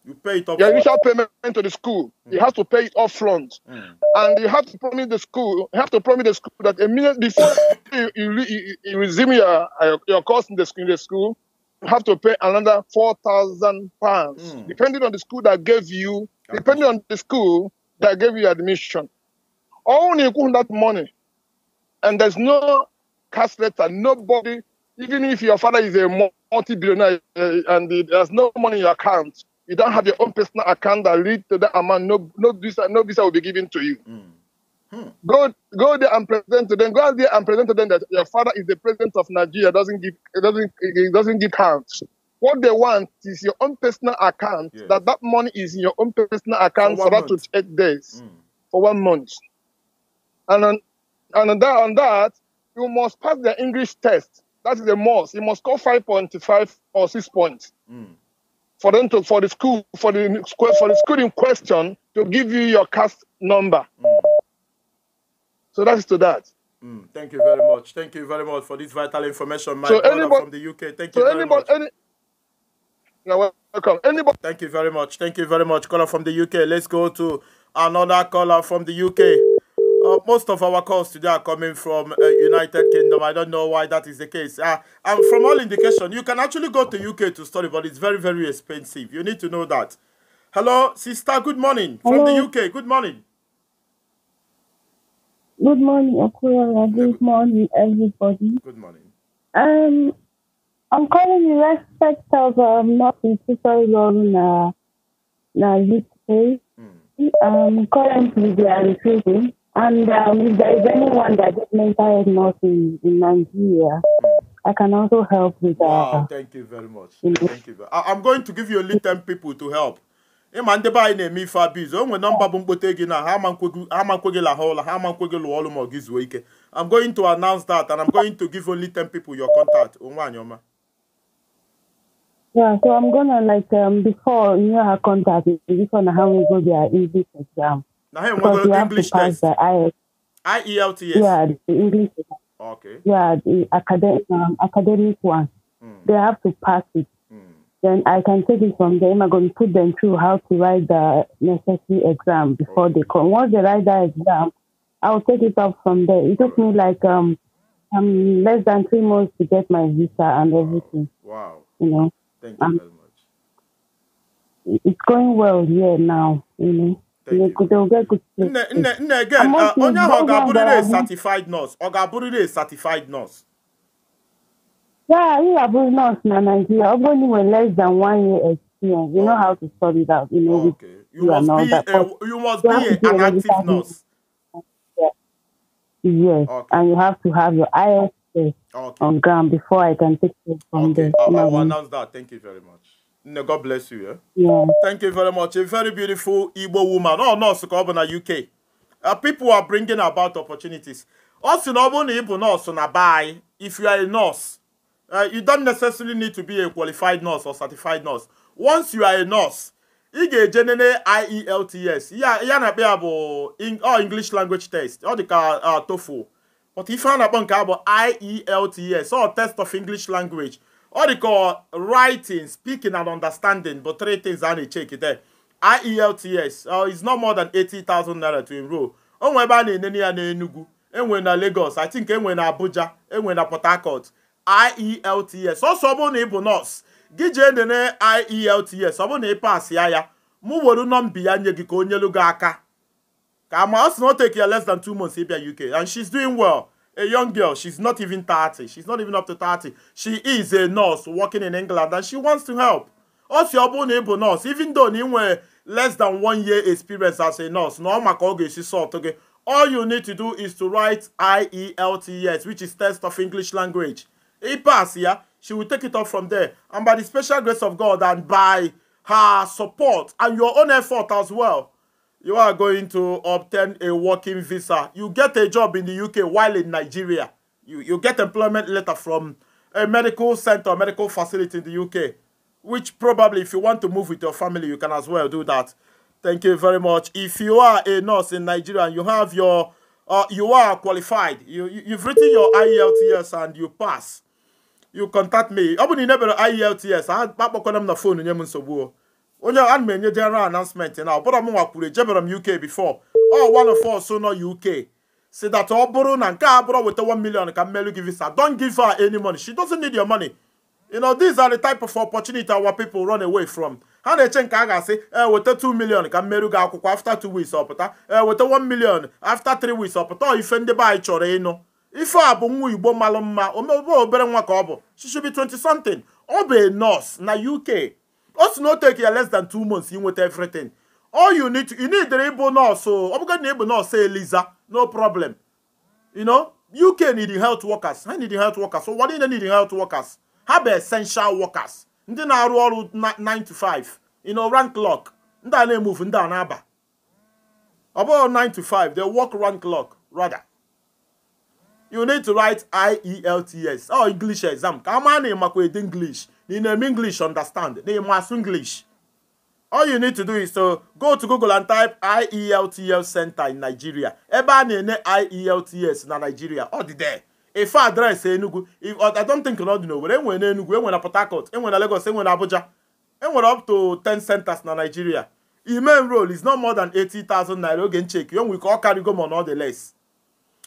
You pay it Your initial payment to the school, mm. you have to pay it off front, mm. and you have to promise the school. You have to promise the school that a minute before you, you, you, resume your your course in the school, in the school you have to pay another four thousand pounds, mm. depending on the school that gave you, depending on the school that gave you admission. Only you that money, and there's no cash letter. Nobody, even if your father is a multi-billionaire eh, and there's no money in your account you don't have your own personal account that leads to that amount. No, no visa, no visa will be given to you. Mm. Hmm. Go, go there and present to them. Go out there and present to them that your father is the president of Nigeria. Doesn't give, it doesn't, it doesn't give count. What they want is your own personal account. Yes. That that money is in your own personal account for, for to eight days, mm. for one month. And on, and on that, on that, you must pass the English test. That is the most. You must score five point five or six points. Mm for them to for the school for the school for the school in question to give you your cast number. Mm. So that's to that. Mm. Thank you very much. Thank you very much for this vital information, my so anybody, from the UK. Thank you so very anybody, much. Any, welcome. Anybody. Thank you very much. Thank you very much, caller from the UK. Let's go to another caller from the UK. Uh, most of our calls today are coming from uh, United Kingdom. I don't know why that is the case. Uh, and from all indication, you can actually go to UK to study, but it's very, very expensive. You need to know that. Hello, sister. Good morning Hello. from the UK. Good morning. Good morning, Okura. Good morning, everybody. Good morning. Um, I'm calling in respect of um, not in Tutorial, na UK. Um, currently, they are recruiting. And um, if there is anyone that gets mental health in, in Nigeria, I can also help with that. Wow, thank you very much. Thank you. I, I'm going to give you a 10 people to help. ịma ndị be anyị na-eme ife abizu o nwere nọmba na ha amakwe gị I'm going to announce that and I'm going to give only 10 people your contact oh, Yeah, so I'm gonna like um, before you know her contact before na how to go their easy exam. Now, hey, one English test. The IELTS. IELTS. Yeah, the English. Okay. Yeah, the academic um, academic one. Mm. They have to pass it. Mm. Then I can take it from them. I'm going to put them through how to write the necessary exam before okay. they come. Once they write that exam, I'll take it up from there. It took me like um, um less than three months to get my visa and everything. Wow. You know. Thank you um, very much. It's going well here now. You know nne uh, again onye ahụ ọ ga-abụrịrị certified nurse ọ is certified nurse Yeah, you are both nurse in Nigeria. Only when less than one year experience, you know how to sort it out. You know, okay. you, must be a, you must you be, be an active nurse. Yeah. Yes, okay. and you have to have your ISS okay. on ground before I can take you from okay. there. Okay, I will announce that. Thank you very much. No, God bless you. Eh? Yeah. Thank you very much. A very beautiful Igbo woman. Oh, no, so na UK. Uh, people are bringing about opportunities. Also, no one Igbo nurse on a buy. If you are a nurse, uh, you don't necessarily need to be a qualified nurse or certified nurse. Once you are a nurse, ị ga-ejenene IELTS yeah. na-akpa ya oh English language test ọ dị ka uh, TOEFL but ife a na-akpọ IELTS or oh, test of English language ọ dịka writing speaking and understanding bụ three things a na-echeki there IELTS uh, is not more than 80,000 naira to enroll o nwe ebe a na ene ya n'Enugu enwe na Lagos I think enwe na Abuja enwe na Port Harcourt IELTS ọsọ bụrụ na ị bụ nọọsụ gị jee nene IELTS ọ bụrụ na ị pas ya ya mụ were nọmba ya nye gị ka o nyelu gị aka ka ma ọ sị na o take ya less than 2 months ịbịa UK and she's doing well a young girl. She's not even 30. She's not even up to 30. She is a nurse working in England and she wants to help. Also, your neighbor nurse, even though you were less than one year experience as a nurse, no makoge she sort okay. All you need to do is to write IELTS, which is test of English language. It pass, yeah. She will take it up from there. And by the special grace of God and by her support and your own effort as well, you are going to obtain a working visa. You get a job in the UK while in Nigeria. You, you get employment letter from a medical center, medical facility in the UK, which probably if you want to move with your family, you can as well do that. Thank you very much. If you are a nurse in Nigeria and you have your, uh, you are qualified, you, you, you've written your IELTS and you pass, you contact me. Ọ bụ na ị nebere IELTS, akpakpọkwana m na fon nye m nsogbu o. onye ana m enye general announcement na ọbụrụ m nwa kwuru ejebere m uk before ọ one of us nọ uk si that ọ bụrụ na nke a bụrụ weta 1 million ka mmelu gi visa don give her any money she doesn't need your money you know these are the type of opportunity our people run away from ha na-eche nke a ga-asị e, weta 2 million ka mmerụ gị akwụkwọ after 2 weeks ọpụta e, weta 1 million after 3 weeks ọpụta ife ndị be anyị chọrọ ịnụ ife a bụ nwa igbo malụ mma omebe obere nwa ka ọ bụ she 20 something ọ bụ nọọsụ na UK o si na o take ya less than two months inweta everything all you need you need ịbụ nọọsụ ọ bụgodị na ịbụ nọọsụ eliza no problem you know uk need health workers ha need health workers so ụwa niile need health workers ha bụ essential workers ndị na-arụ ọrụ 9 to 5 you know rank lock. ndị a na-emove ndị a na-aba ọ bụghị 9 to 5 they work rank lock rather you need to write IELTS or oh, English exam ka a maa na ịmakwa ede English in English understand. They must English. All you need to do is to go to Google and type IELTS Center in Nigeria. Eba a na IELTS na Nigeria. Ọ dị there. Ife adreesị Enugu. I don't think you know dị n'Owerri. Enwere na Enugu, enwere na Port Harcourt, enwere na Lagos, enwere na Abuja. Enwere up to 10 centers na Nigeria. Im main role is not more than 80,000 naira oge check. You ka call carry go more or the less.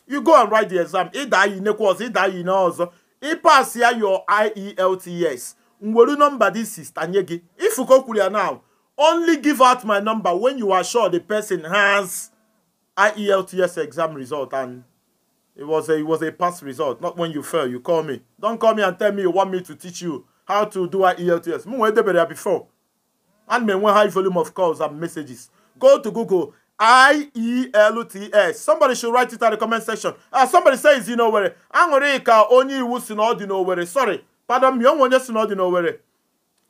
You go and write the exam. Ịda yi nekwa ọzọ, ịda yi na ọzọ. pass here your IELTS nwere nọmba dị sista nye gị ifuko kwuru ya now only give out my number when you are sure the person has IELTS exam result and it was a it was a pass result not when you fail you call me don't call me and tell me you want me to teach you how to do IELTS m nwee debere ya before and may enwe high volume of calls and messages go to Google IELTS somebody should write it at the comment section uh, somebody says you know where aṅụrị ka onye iwu si na ọ dị n'Owerri sorry pardon me onwe onye si na ọ dị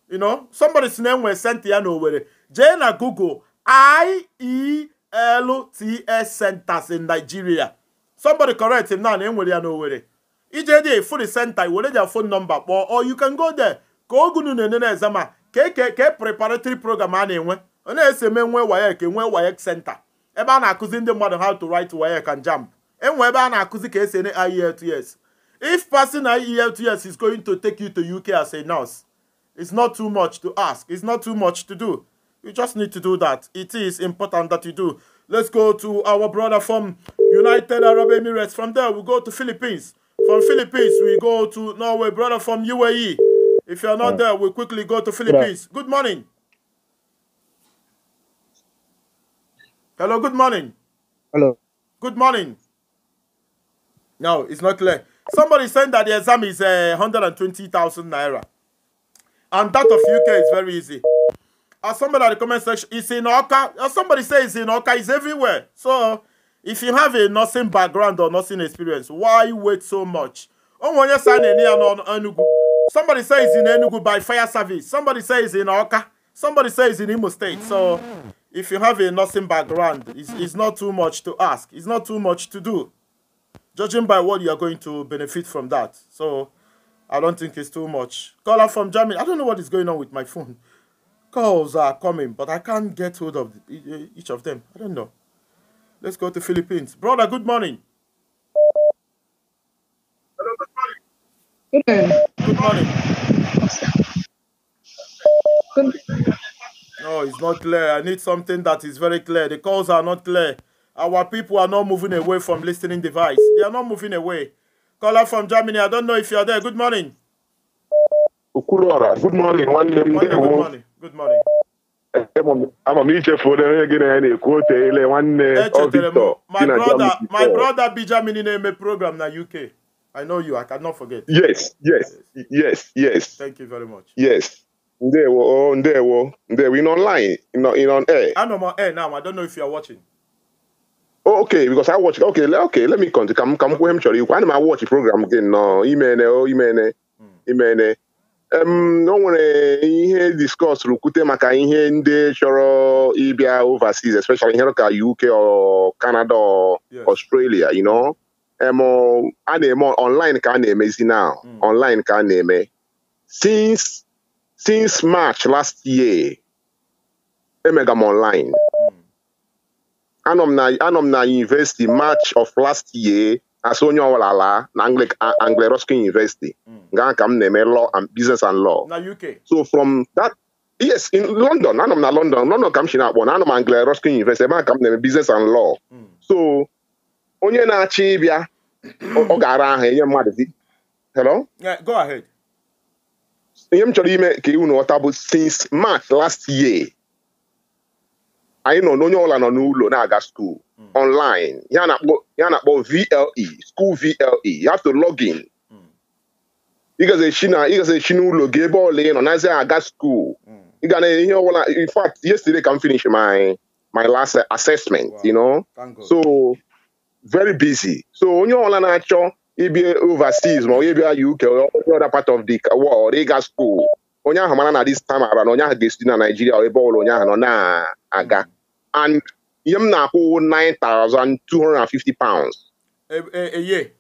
you know somebody si na enwe senti ya n'owere jee na Google IELTS centers in Nigeria somebody correct him na na enwere ya n'owere ije dị efu senta center were their phone number kpọọ or you can go there ka ogunu na-ene na ka e, e, e preparatory program a na-enwe onye na-ese eme nwe WAEC nwee WAEC senta ebe a na-akụzi ndị mmadụ how to write WAEC and enwe ebe a na-akụzi ka esi ene IELTS If passing IELTS is going to take you to UK as a nurse, it's not too much to ask. It's not too much to do. You just need to do that. It is important that you do. Let's go to our brother from United Arab Emirates. From there, we go to Philippines. From Philippines, we go to Norway. Brother from UAE. If you're not there, we quickly go to Philippines. Good morning. Hello, good morning. Hello. Good morning. No, it's not clear. Somebody saying that the exam is uh, eh, 120,000 naira. And that of UK is very easy. As somebody in the comment section, it's in Oka. As somebody says in Oka, it's everywhere. So, if you have a nursing background or nursing experience, why wait so much? Somebody says in Enugu by fire service. Somebody says in Oka. Somebody says in Imo State. So, if you have a nursing background, it's, it's not too much to ask. It's not too much to do. Judging by what you are going to benefit from that. So I don't think it's too much. Caller from Germany. I don't know what is going on with my phone. Calls are coming, but I can't get hold of each of them. I don't know. Let's go to Philippines. Brother, good morning. Hello, good morning. Good morning. Good morning. No, it's not clear. I need something that is very clear. The calls are not clear. Our people are not moving away from listening device. They are not moving away. Caller from Germany, I don't know if you are there. Good morning. good morning. Good morning. Good morning. I'm a ichefu for gị na ya quote? ekwu eh, eh, eh, My brother, my brother bi in na program na UK. I know you. I cannot forget. Yes, yes, yes, yes. Thank you very much. Yes. there. Oh, ndewo, ndewo. In online, in on air. I'm on air now. I don't know if you are watching. Oh, okay, because I watch. Okay, okay, let me continue. Come, come, come, sorry. Why am I watch program again? No, imene, eh, oh, imene, eh. hmm. eh. imene. Um, no one Here, discuss rukute maka ihe ndị chọrọ ịbịa overseas, especially here ka UK or Canada or yes. Australia, you know. Um, a online ka a na now. Hmm. Online ka a Since since March last year, emega m online. anọ m na yunivesiti march of last year asị onye ọwụla ala na Anglo-Ruskin University hmm. nga ka m na-eme law and business and law so from that yes in London anọ m na London London ka m si na-akpọ na anọ m Anglo-Ruskin University ebe a ka m na-eme business and law hmm. so onye na-achị ịbịa ọ ga-ara aha enye mmadụ hello go ahead ihe m chọrọ ime ka unu ghọta bụ since march last year anyị nọ n'onye ọbụla nọ n'ụlọ na-aga skuul ọnlaịn hmm. ya na-akpọ VLE skuul VLE you have to log in hmm. ịgazechi n'ụlọ gị ebe ọla ị nọ nazi aga skuul ịga na ihe ọbụla in fact yesterday ka m finish my my last assessment you know so very busy so onye ọbụla na-achọ ịbịa overseas ma onye bịa UK or other part of the world ịga skuul onye ahụ mara na this time na onye ahụ ga-esi na Naijiria ebe ọbụla onye ahụ nọ na-aga and yam na whole nine thousand two hundred and fifty pounds a, a, a year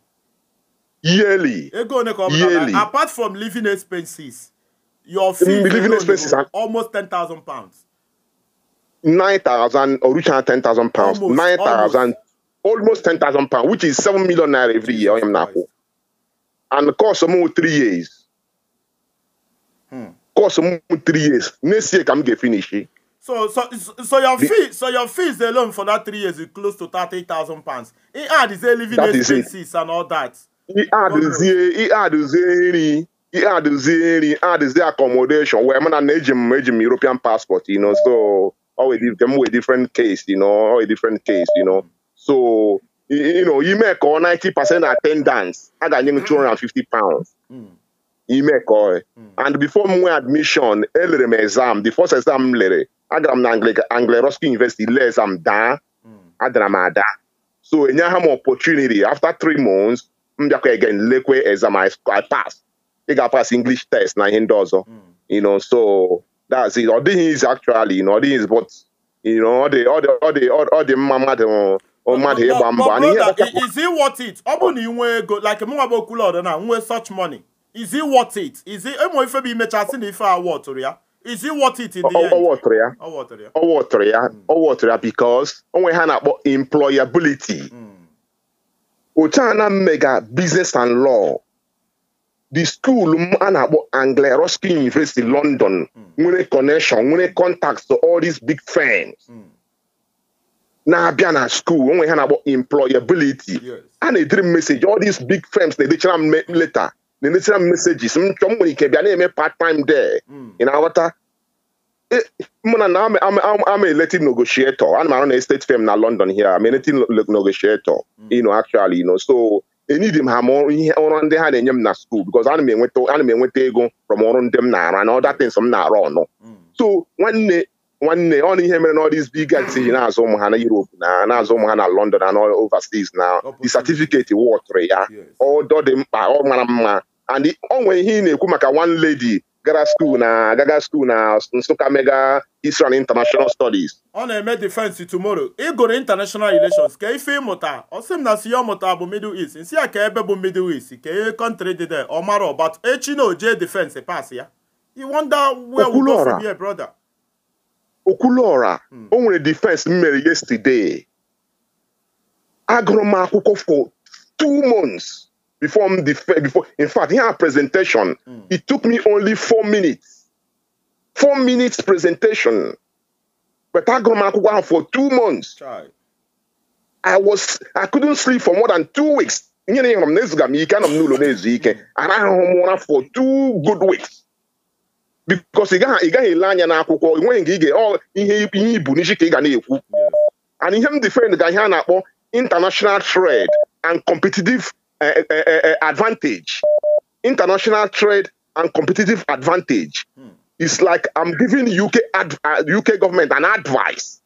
yearly yearly apart from living expenses your fee mm, living expenses are almost ten thousand pounds nine thousand or ten thousand pounds nine thousand almost ten thousand pounds which is seven million naira every year I'm na whole and the course of more three years hmm. course of more three years next year can m finished. Eh? So, so, so your the, fee, so your fees alone for that three years is close to thirty thousand pounds. He had his living expenses and all that. He had his, he had his he had his, he had his accommodation. Where man an agent, agent European passport, you know. So, always them with different case, you know, always different case, you know. So, you know, you make all ninety percent attendance. I got him mm. two hundred and fifty pounds. Mm. ime imekọ hmm. and before m nwee admission elere m exam the first exam m lere agara m na anglo University lee exam daa hmm. adara m ada so ha m opportunity after three months m bịakwa again lekwe exam I pass ị ga pass English test na ihe ndị ọzọ hmm. you know so that's it ọ dịghị easy actually you know ọ dịghị easy but you know ọ dị ọ dị ọ dị mma mmadụ mmadụ ịgba mbọ ọ bụ na ị nwee ego like mụnwa bụ okwulu na nwee such money is it worth it is it ụmụ ife bụ imecha sị na ife a wọtụrụ ya is it worth it in the end? ọ water, ya ọ water, ya ọ water, ya because onwe ha na-akpọ employability hmm. otu a na mmega business and law the school m a na-akpọ Anglia Ruskin University London hmm. nwere connection nwere contacts to all these big firms hmm. na-abịa a school onwe ha na-akpọ employability a na-ediri m message all these big firms na-edechara m later. na-emesịra m mesejis m chọọ m nwere ike bịa na-eme part time there ị hmm. na-aghọta e, mụna na ama elected negotiator ana m arụ na estate firm na London here am elected negotiator ino hmm. actually ino so enidi m ha ma ihe ọrụ ndị ha na-enye m na school because ana m enweta ego from ọrụ ndị m na ara hmm. na other m na-arụ ọnụ so nwanne nwanne ọ na ihe mere na ọdịs big guys na-azụ ụmụ ha na Europe na na-azụ ụmụ ha na London na overseas na the certificate wọtụrụ ya ọ dị mkpa ọ mara mma and ọ nwere ihe ị na-ekwu maka one lady gara skuul na gaga skuul na Nsụka mega Israel international studies ọ na-eme defense tomorrow ịgụrụ international relations ka ife ịmụta ọ m na si ya ọmụta bụ middle east nsi ya ka ebe bụ middle east ka ihe kọntrị dị de ọ mara ọbat echi na oje defense pas ya you wonder where we go from here brother Okulora mm. onwere defense m mere yesterday agụrụ m akwụkwọ for two months before m defend before in fact here presentation mm. it took me only four minutes four minutes presentation but agụrụ m akwụkwọ ahụ for two months Try. I was I couldn't sleep for more than two weeks nyere ihe nọ m na-ezuga m ike anọ m n'ụlọ na-ezu ike arahụghị m ụra for two good weeks because ị gaghị ele anya n'akwụkwọ enweghị nke ị ga ihe ihe ibu n'isi ka ị ga na-ekwu and ihe m defend ga ihe a na-akpọ international trade eh, eh, eh, and competitive advantage international hmm. trade and competitive advantage is like I'm giving UK UK uh, government an advice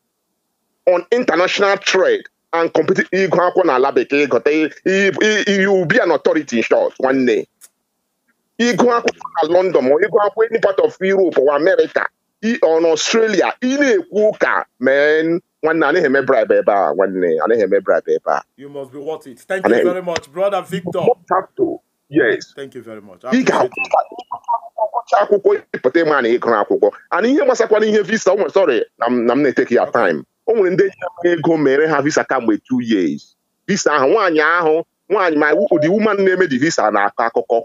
on international trade and competitive ịgụ akwụkwọ n'ala bekee gote you be an authority in short one day ịgụ akwụkwọ na London ma ịgụ akwụkwọ any part of Europe or America or Australia ị na-ekwu ụka mee nwanne anaghị eme bribe ebe a nwanne anaghị eme bribe ebe a you must be worth it thank you very much brother Victor yes thank you very much ị ga-akwụcha akwụkwọ ịpụta ịma na ịgụ akwụkwọ ana ihe gbasakwana ihe visa o nwere sorry na m na-eteki ya time o nwere ndị ji ego mere ha visa kamgbe two years visa ahụ nwaanyị ahụ nwaanyị ma ụdị woman na-eme di visa na-akọ akụkọ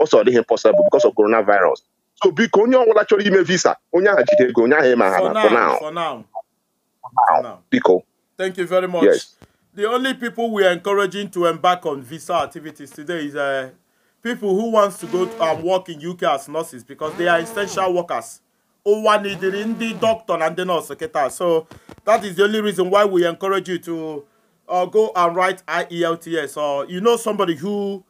Also, the impossible because of coronavirus so biko onye ọbụla actually me visa onye ahụ jide ego onye ahụ ịma ha na for now for now biko thank you very much yes. the only people we are encouraging to embark on visa activities today is uh, people who wants to go and um, work in UK as nurses because they are essential workers. the doctor and the nurse secretary. So that is the only reason why we encourage you to uh, go and write IELTS or you know somebody who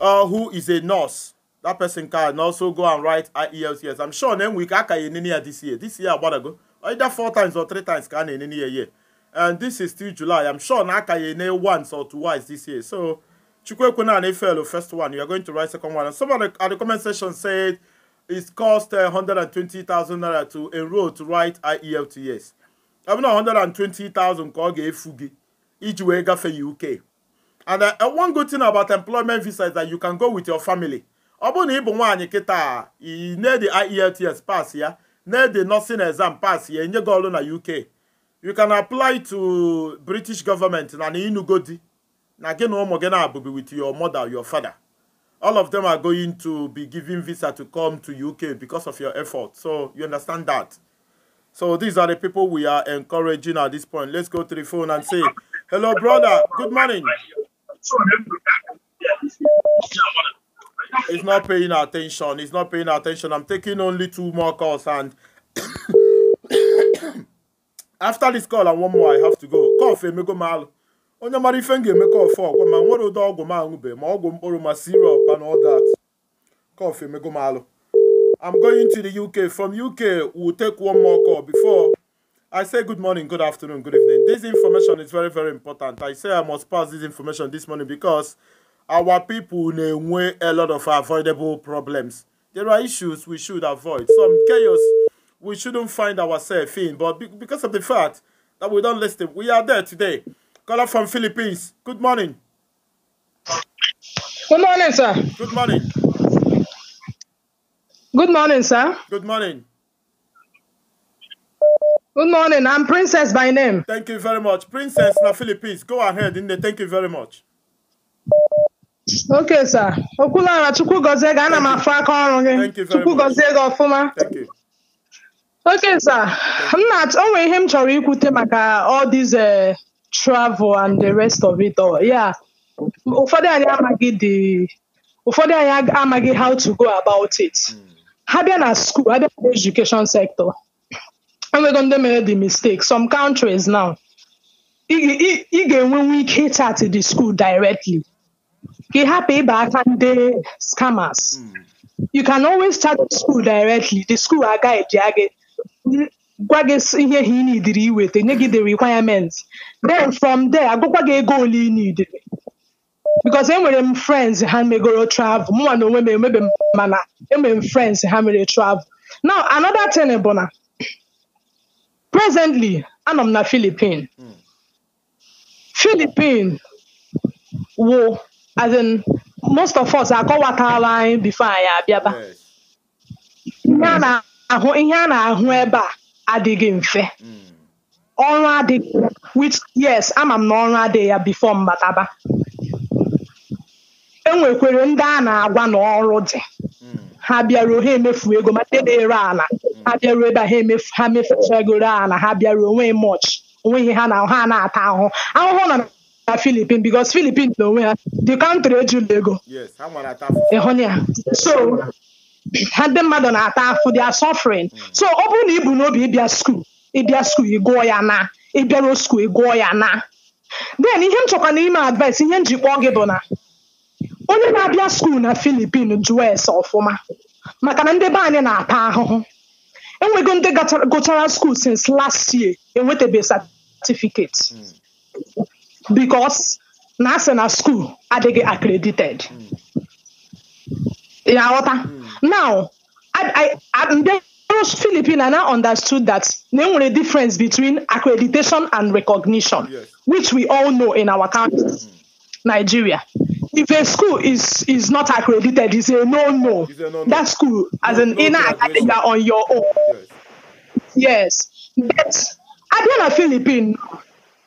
uh, who is a nurse. That person can also go and write IELTS. I'm sure then we can in any year this year. This year, about ago, either four times or three times can in any year. And this is still July. I'm sure can in once or twice this year. So Chukwekuna and Efelo, first one. You are going to write second one. And someone at the comment section said it's cost uh, 120,000 naira to enroll to write IELTS. I'm not 120,000 ka ọ ga-efu gị iji wee UK and uh, uh, one good thing about employment visa is that you can go with your family ọ bụrụ na ị bụ nwaanyị kịta i na-ede IELTS pass ya na-ede nursing exam pass ya enye gị ọrụ na UK you can apply to British government na na ịnụgo di na gị na ụmụ gị na-abụbi with your mother your father all of them are going to be giving visa to come to UK because of your effort so you understand that so these are the people we are encouraging at this point let's go to the phone and say hello brother good morning He's not paying attention. He's not paying attention. I'm taking only two more calls and after this call and one more I have to go. Cough emego mal. Onye mara ife m call for kọfụ ọgwụ ma nwere ụdị ọgwụ ma ma ọgwụ mkpụrụ ma syrup and all that. Cough go malụ. I'm going to the UK. From UK, we'll take one more call before I say good morning, good afternoon, good evening. This information is very, very important. I say I must pass this information this morning because our people way a lot of avoidable problems. There are issues we should avoid. Some chaos we shouldn't find ourselves in. But because of the fact that we don't listen, we are there today. Caller from Philippines. Good morning. Good morning, sir. Good morning. Good morning, sir. Good morning. Good morning. I'm Princess by name. Thank you very much. Princess na Philippines. Go ahead, Nne. Thank you very much. Okay, sir. Okulara Chukwu gozie gị, ana m afụ aka ọrụ gị. Chukwu gozie gị ọfụma. Okay, sir. M na onwe ihe m chọrọ ikwute maka all this uh, travel and the rest of it all. Yeah. Ụfọdụ anyị amaghị the ụfọdụ anyị amaghị how to go about it. Hmm. Ha bịa na school, ha bịa na education sector. and we're going to make the mistake. Some countries now, ị ga-enwenwu ike to the school directly have hapụ back and ndị scammers hmm. you can always start the school directly the school agaghị gị gwa gị ihe ha ị nidiri iweta the requirements then from there I go ego ole ị nidiri because we're friends me go travel more na onwe maybe mana enwere m friends ha mere travel now another thing bụ Presently, anọ m na Philippine. Hmm. Philippine wụ as in most of us akọwatala anyị before anyị abịaba. Ihe a na-ahụ ebe a adịghị mfe. Hmm. Ọrụ adịghị which yes ama m na ọrụ adịghị ya before mbataba. Enwekwere ndị a na-agwa na ọrụ dị hmm. ha bịara ohe emefu ego ma ndị ala ha bịaruo ebe a ha ha mefechagoro ala ha bịaruo onweghị mọch onweghị ha na ha na-ata ahụhụ ahụhụ na na Philippines because Philippines na onwe ha the country ejula ego ịhụna ya so ha ndị mmadụ na-ata afụ they are suffering hmm. so ọ bụrụ na ị bụ n'obi ịbịa skuul ịbịa skuul ị gụọ ya na ịbịaruo skuul ị gụọ ya na then ihe m chọkwa n'ime advice ihe m ji kpọọ gị bụ na onye na-abịa skuul na Philippines jụọ ese ọfụma maka na ndị be anyị na-ata ahụhụ enwego ndị gụchara skuul since last year enwetabeghị certificate hmm. because na asị na skuul adịghị accredited ya ghọta hmm. now ndị Filipina now understood that there na a difference between accreditation and recognition yes. which we all know in our country hmm. Nigeria if a school is is not accredited, it's a no no. That school as an inner accreditor on your own. Yes. yes. But Abia na Philippine,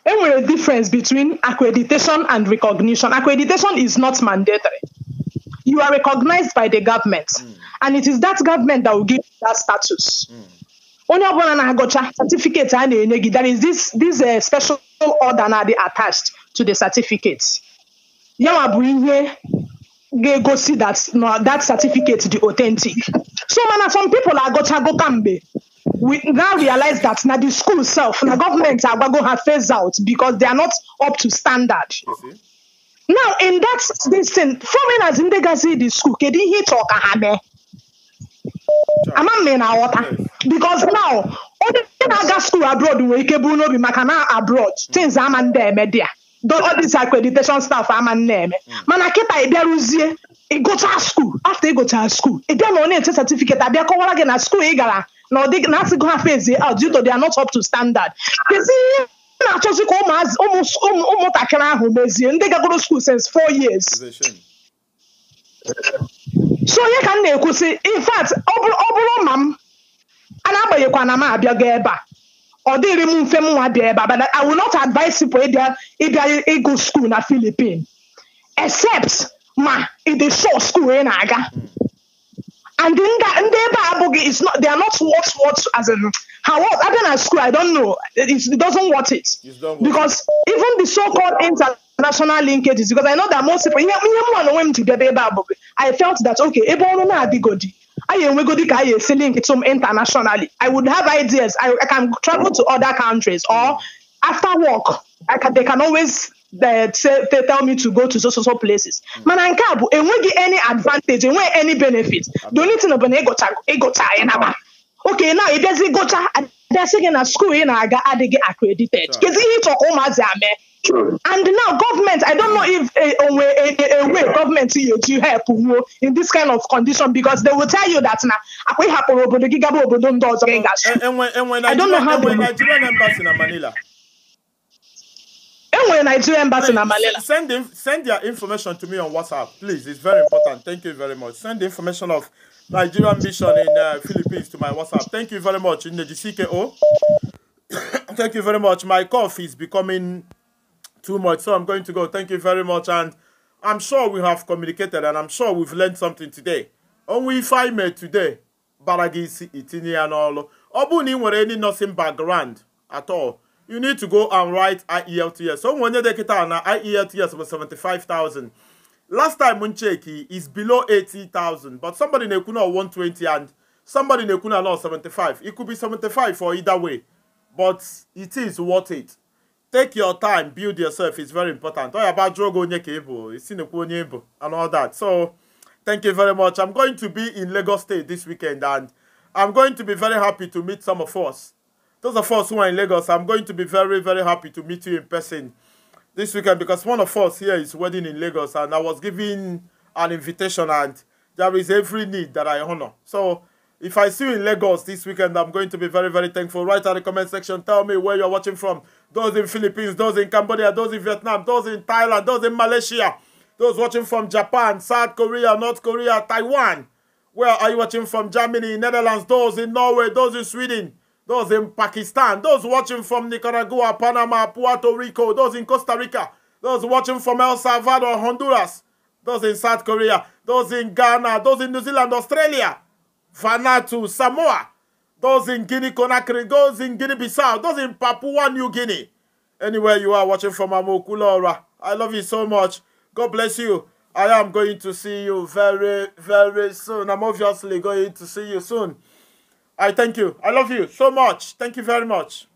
there a difference between accreditation and recognition. Accreditation is not mandatory. You are recognized by the government, mm. and it is that government that will give you that status. Hmm. Only ọbụla certificate a na-enye gị, this, this uh, special order na dị attached to the certificate. yanwa bụ ihe ga-egosi that na that certificate dị authentic so mana some people agụchago kamgbe we now realize that na the school self na government agwago ha phase out because they are not up to standard now in that this thing foreigners ndị gazi the school kedu ihe ịchọ ah, ka ha mee ama m na aghọta because now onye na-aga school abroad nwere ike bụrụ n'obi maka na abroad things ama ndị eme dị all this accreditation staff ama na-eme hmm. mana kịta ị bịaruzie ịgụchaa skuul afta ịgụchaa skuul ị bịa na onye nche abịa kọwara gị na skuul ị gara na asịgo na fezie out due to they are not up to standard kezi ihe na-achọzi ka ụmụntakịrị ahụ mezie ndị gagoro skuul since four years so onye ka m na-ekwusi in fact ọ bụrụ ma m a na-agbanyekwa na m abịago ebe a or they remove them one there, but I will not advise people if they if go school in Philippines. Except ma if they show school in Aga. And then that and they is not they are not worth what as in how what other than school, I don't know. It's, it doesn't worth it. Because even the so called international linkages because I know that most people I felt that okay, Ebola na adigodi. Ayenwegodi Kaye is selling its home internationally. I would have ideas. I, I can travel to other countries or after work, I can, they can always they, uh, say, they tell me to go to so so so places. Hmm. Man, nke a bụ get any advantage, enweghị any benefit. Don't The only thing bụ na ịgụcha ịgụcha anyị naba. Okay, now ịbịazi gụcha they're na at school, na na-aga get accredited. Kedu ihe ịchọ ka ụmụazị amee? And now government, I don't know if a, a way, a, a way government to, eh, to help in this kind of condition because they will tell you that now ah, we have a obodo gigabo obodo I don't know how the Nigerian embassy in Manila. Enwe Nigerian embassy in Manila. Send in, send their information to me on WhatsApp, please. It's very important. Thank you very much. Send the information of Nigerian mission in uh, Philippines to my WhatsApp. Thank you very much in the GCKO. Thank you very much. My cough is becoming too much. So I'm going to go. Thank you very much. And I'm sure we have communicated and I'm sure we've learned something today. Only if I bara today, baragisi itini and all. Ọ bụrụ na ị any nursing background at all, you need to go and write IELTS. So onye get an IELTS was 75,000. Last time m cheki is below 80,000, but somebody na-ekwu 120 and somebody na-ekwu 75. It could be 75 for either way, but it is worth it take your time build yourself It's very important oya about jụọ gị onye ka ị bụ isi nekwu and all that so thank you very much i'm going to be in lagos state this weekend and i'm going to be very happy to meet some of us those of us who are in lagos i'm going to be very very happy to meet you in person this weekend because one of us here is wedding in lagos and i was given an invitation and there is every need that i honor so if I see you in Lagos this weekend, I'm going to be very, very thankful. Write in the comment section. Tell me where you're watching from. Those in Philippines, those in Cambodia, those in Vietnam, those in Thailand, those in Malaysia, those watching from Japan, South Korea, North Korea, Taiwan. Where are you watching from? Germany, Netherlands, those in Norway, those in Sweden, those in Pakistan, those watching from Nicaragua, Panama, Puerto Rico, those in Costa Rica, those watching from El Salvador, Honduras, those in South Korea, those in Ghana, those in New Zealand, Australia. Vanuatu, Samoa, those in Guinea Conakry, those in Guinea Bissau, those in Papua New Guinea. Anywhere you are watching from Amokulora, I love you so much. God bless you. I am going to see you very, very soon. I'm obviously going to see you soon. I thank you. I love you so much. Thank you very much.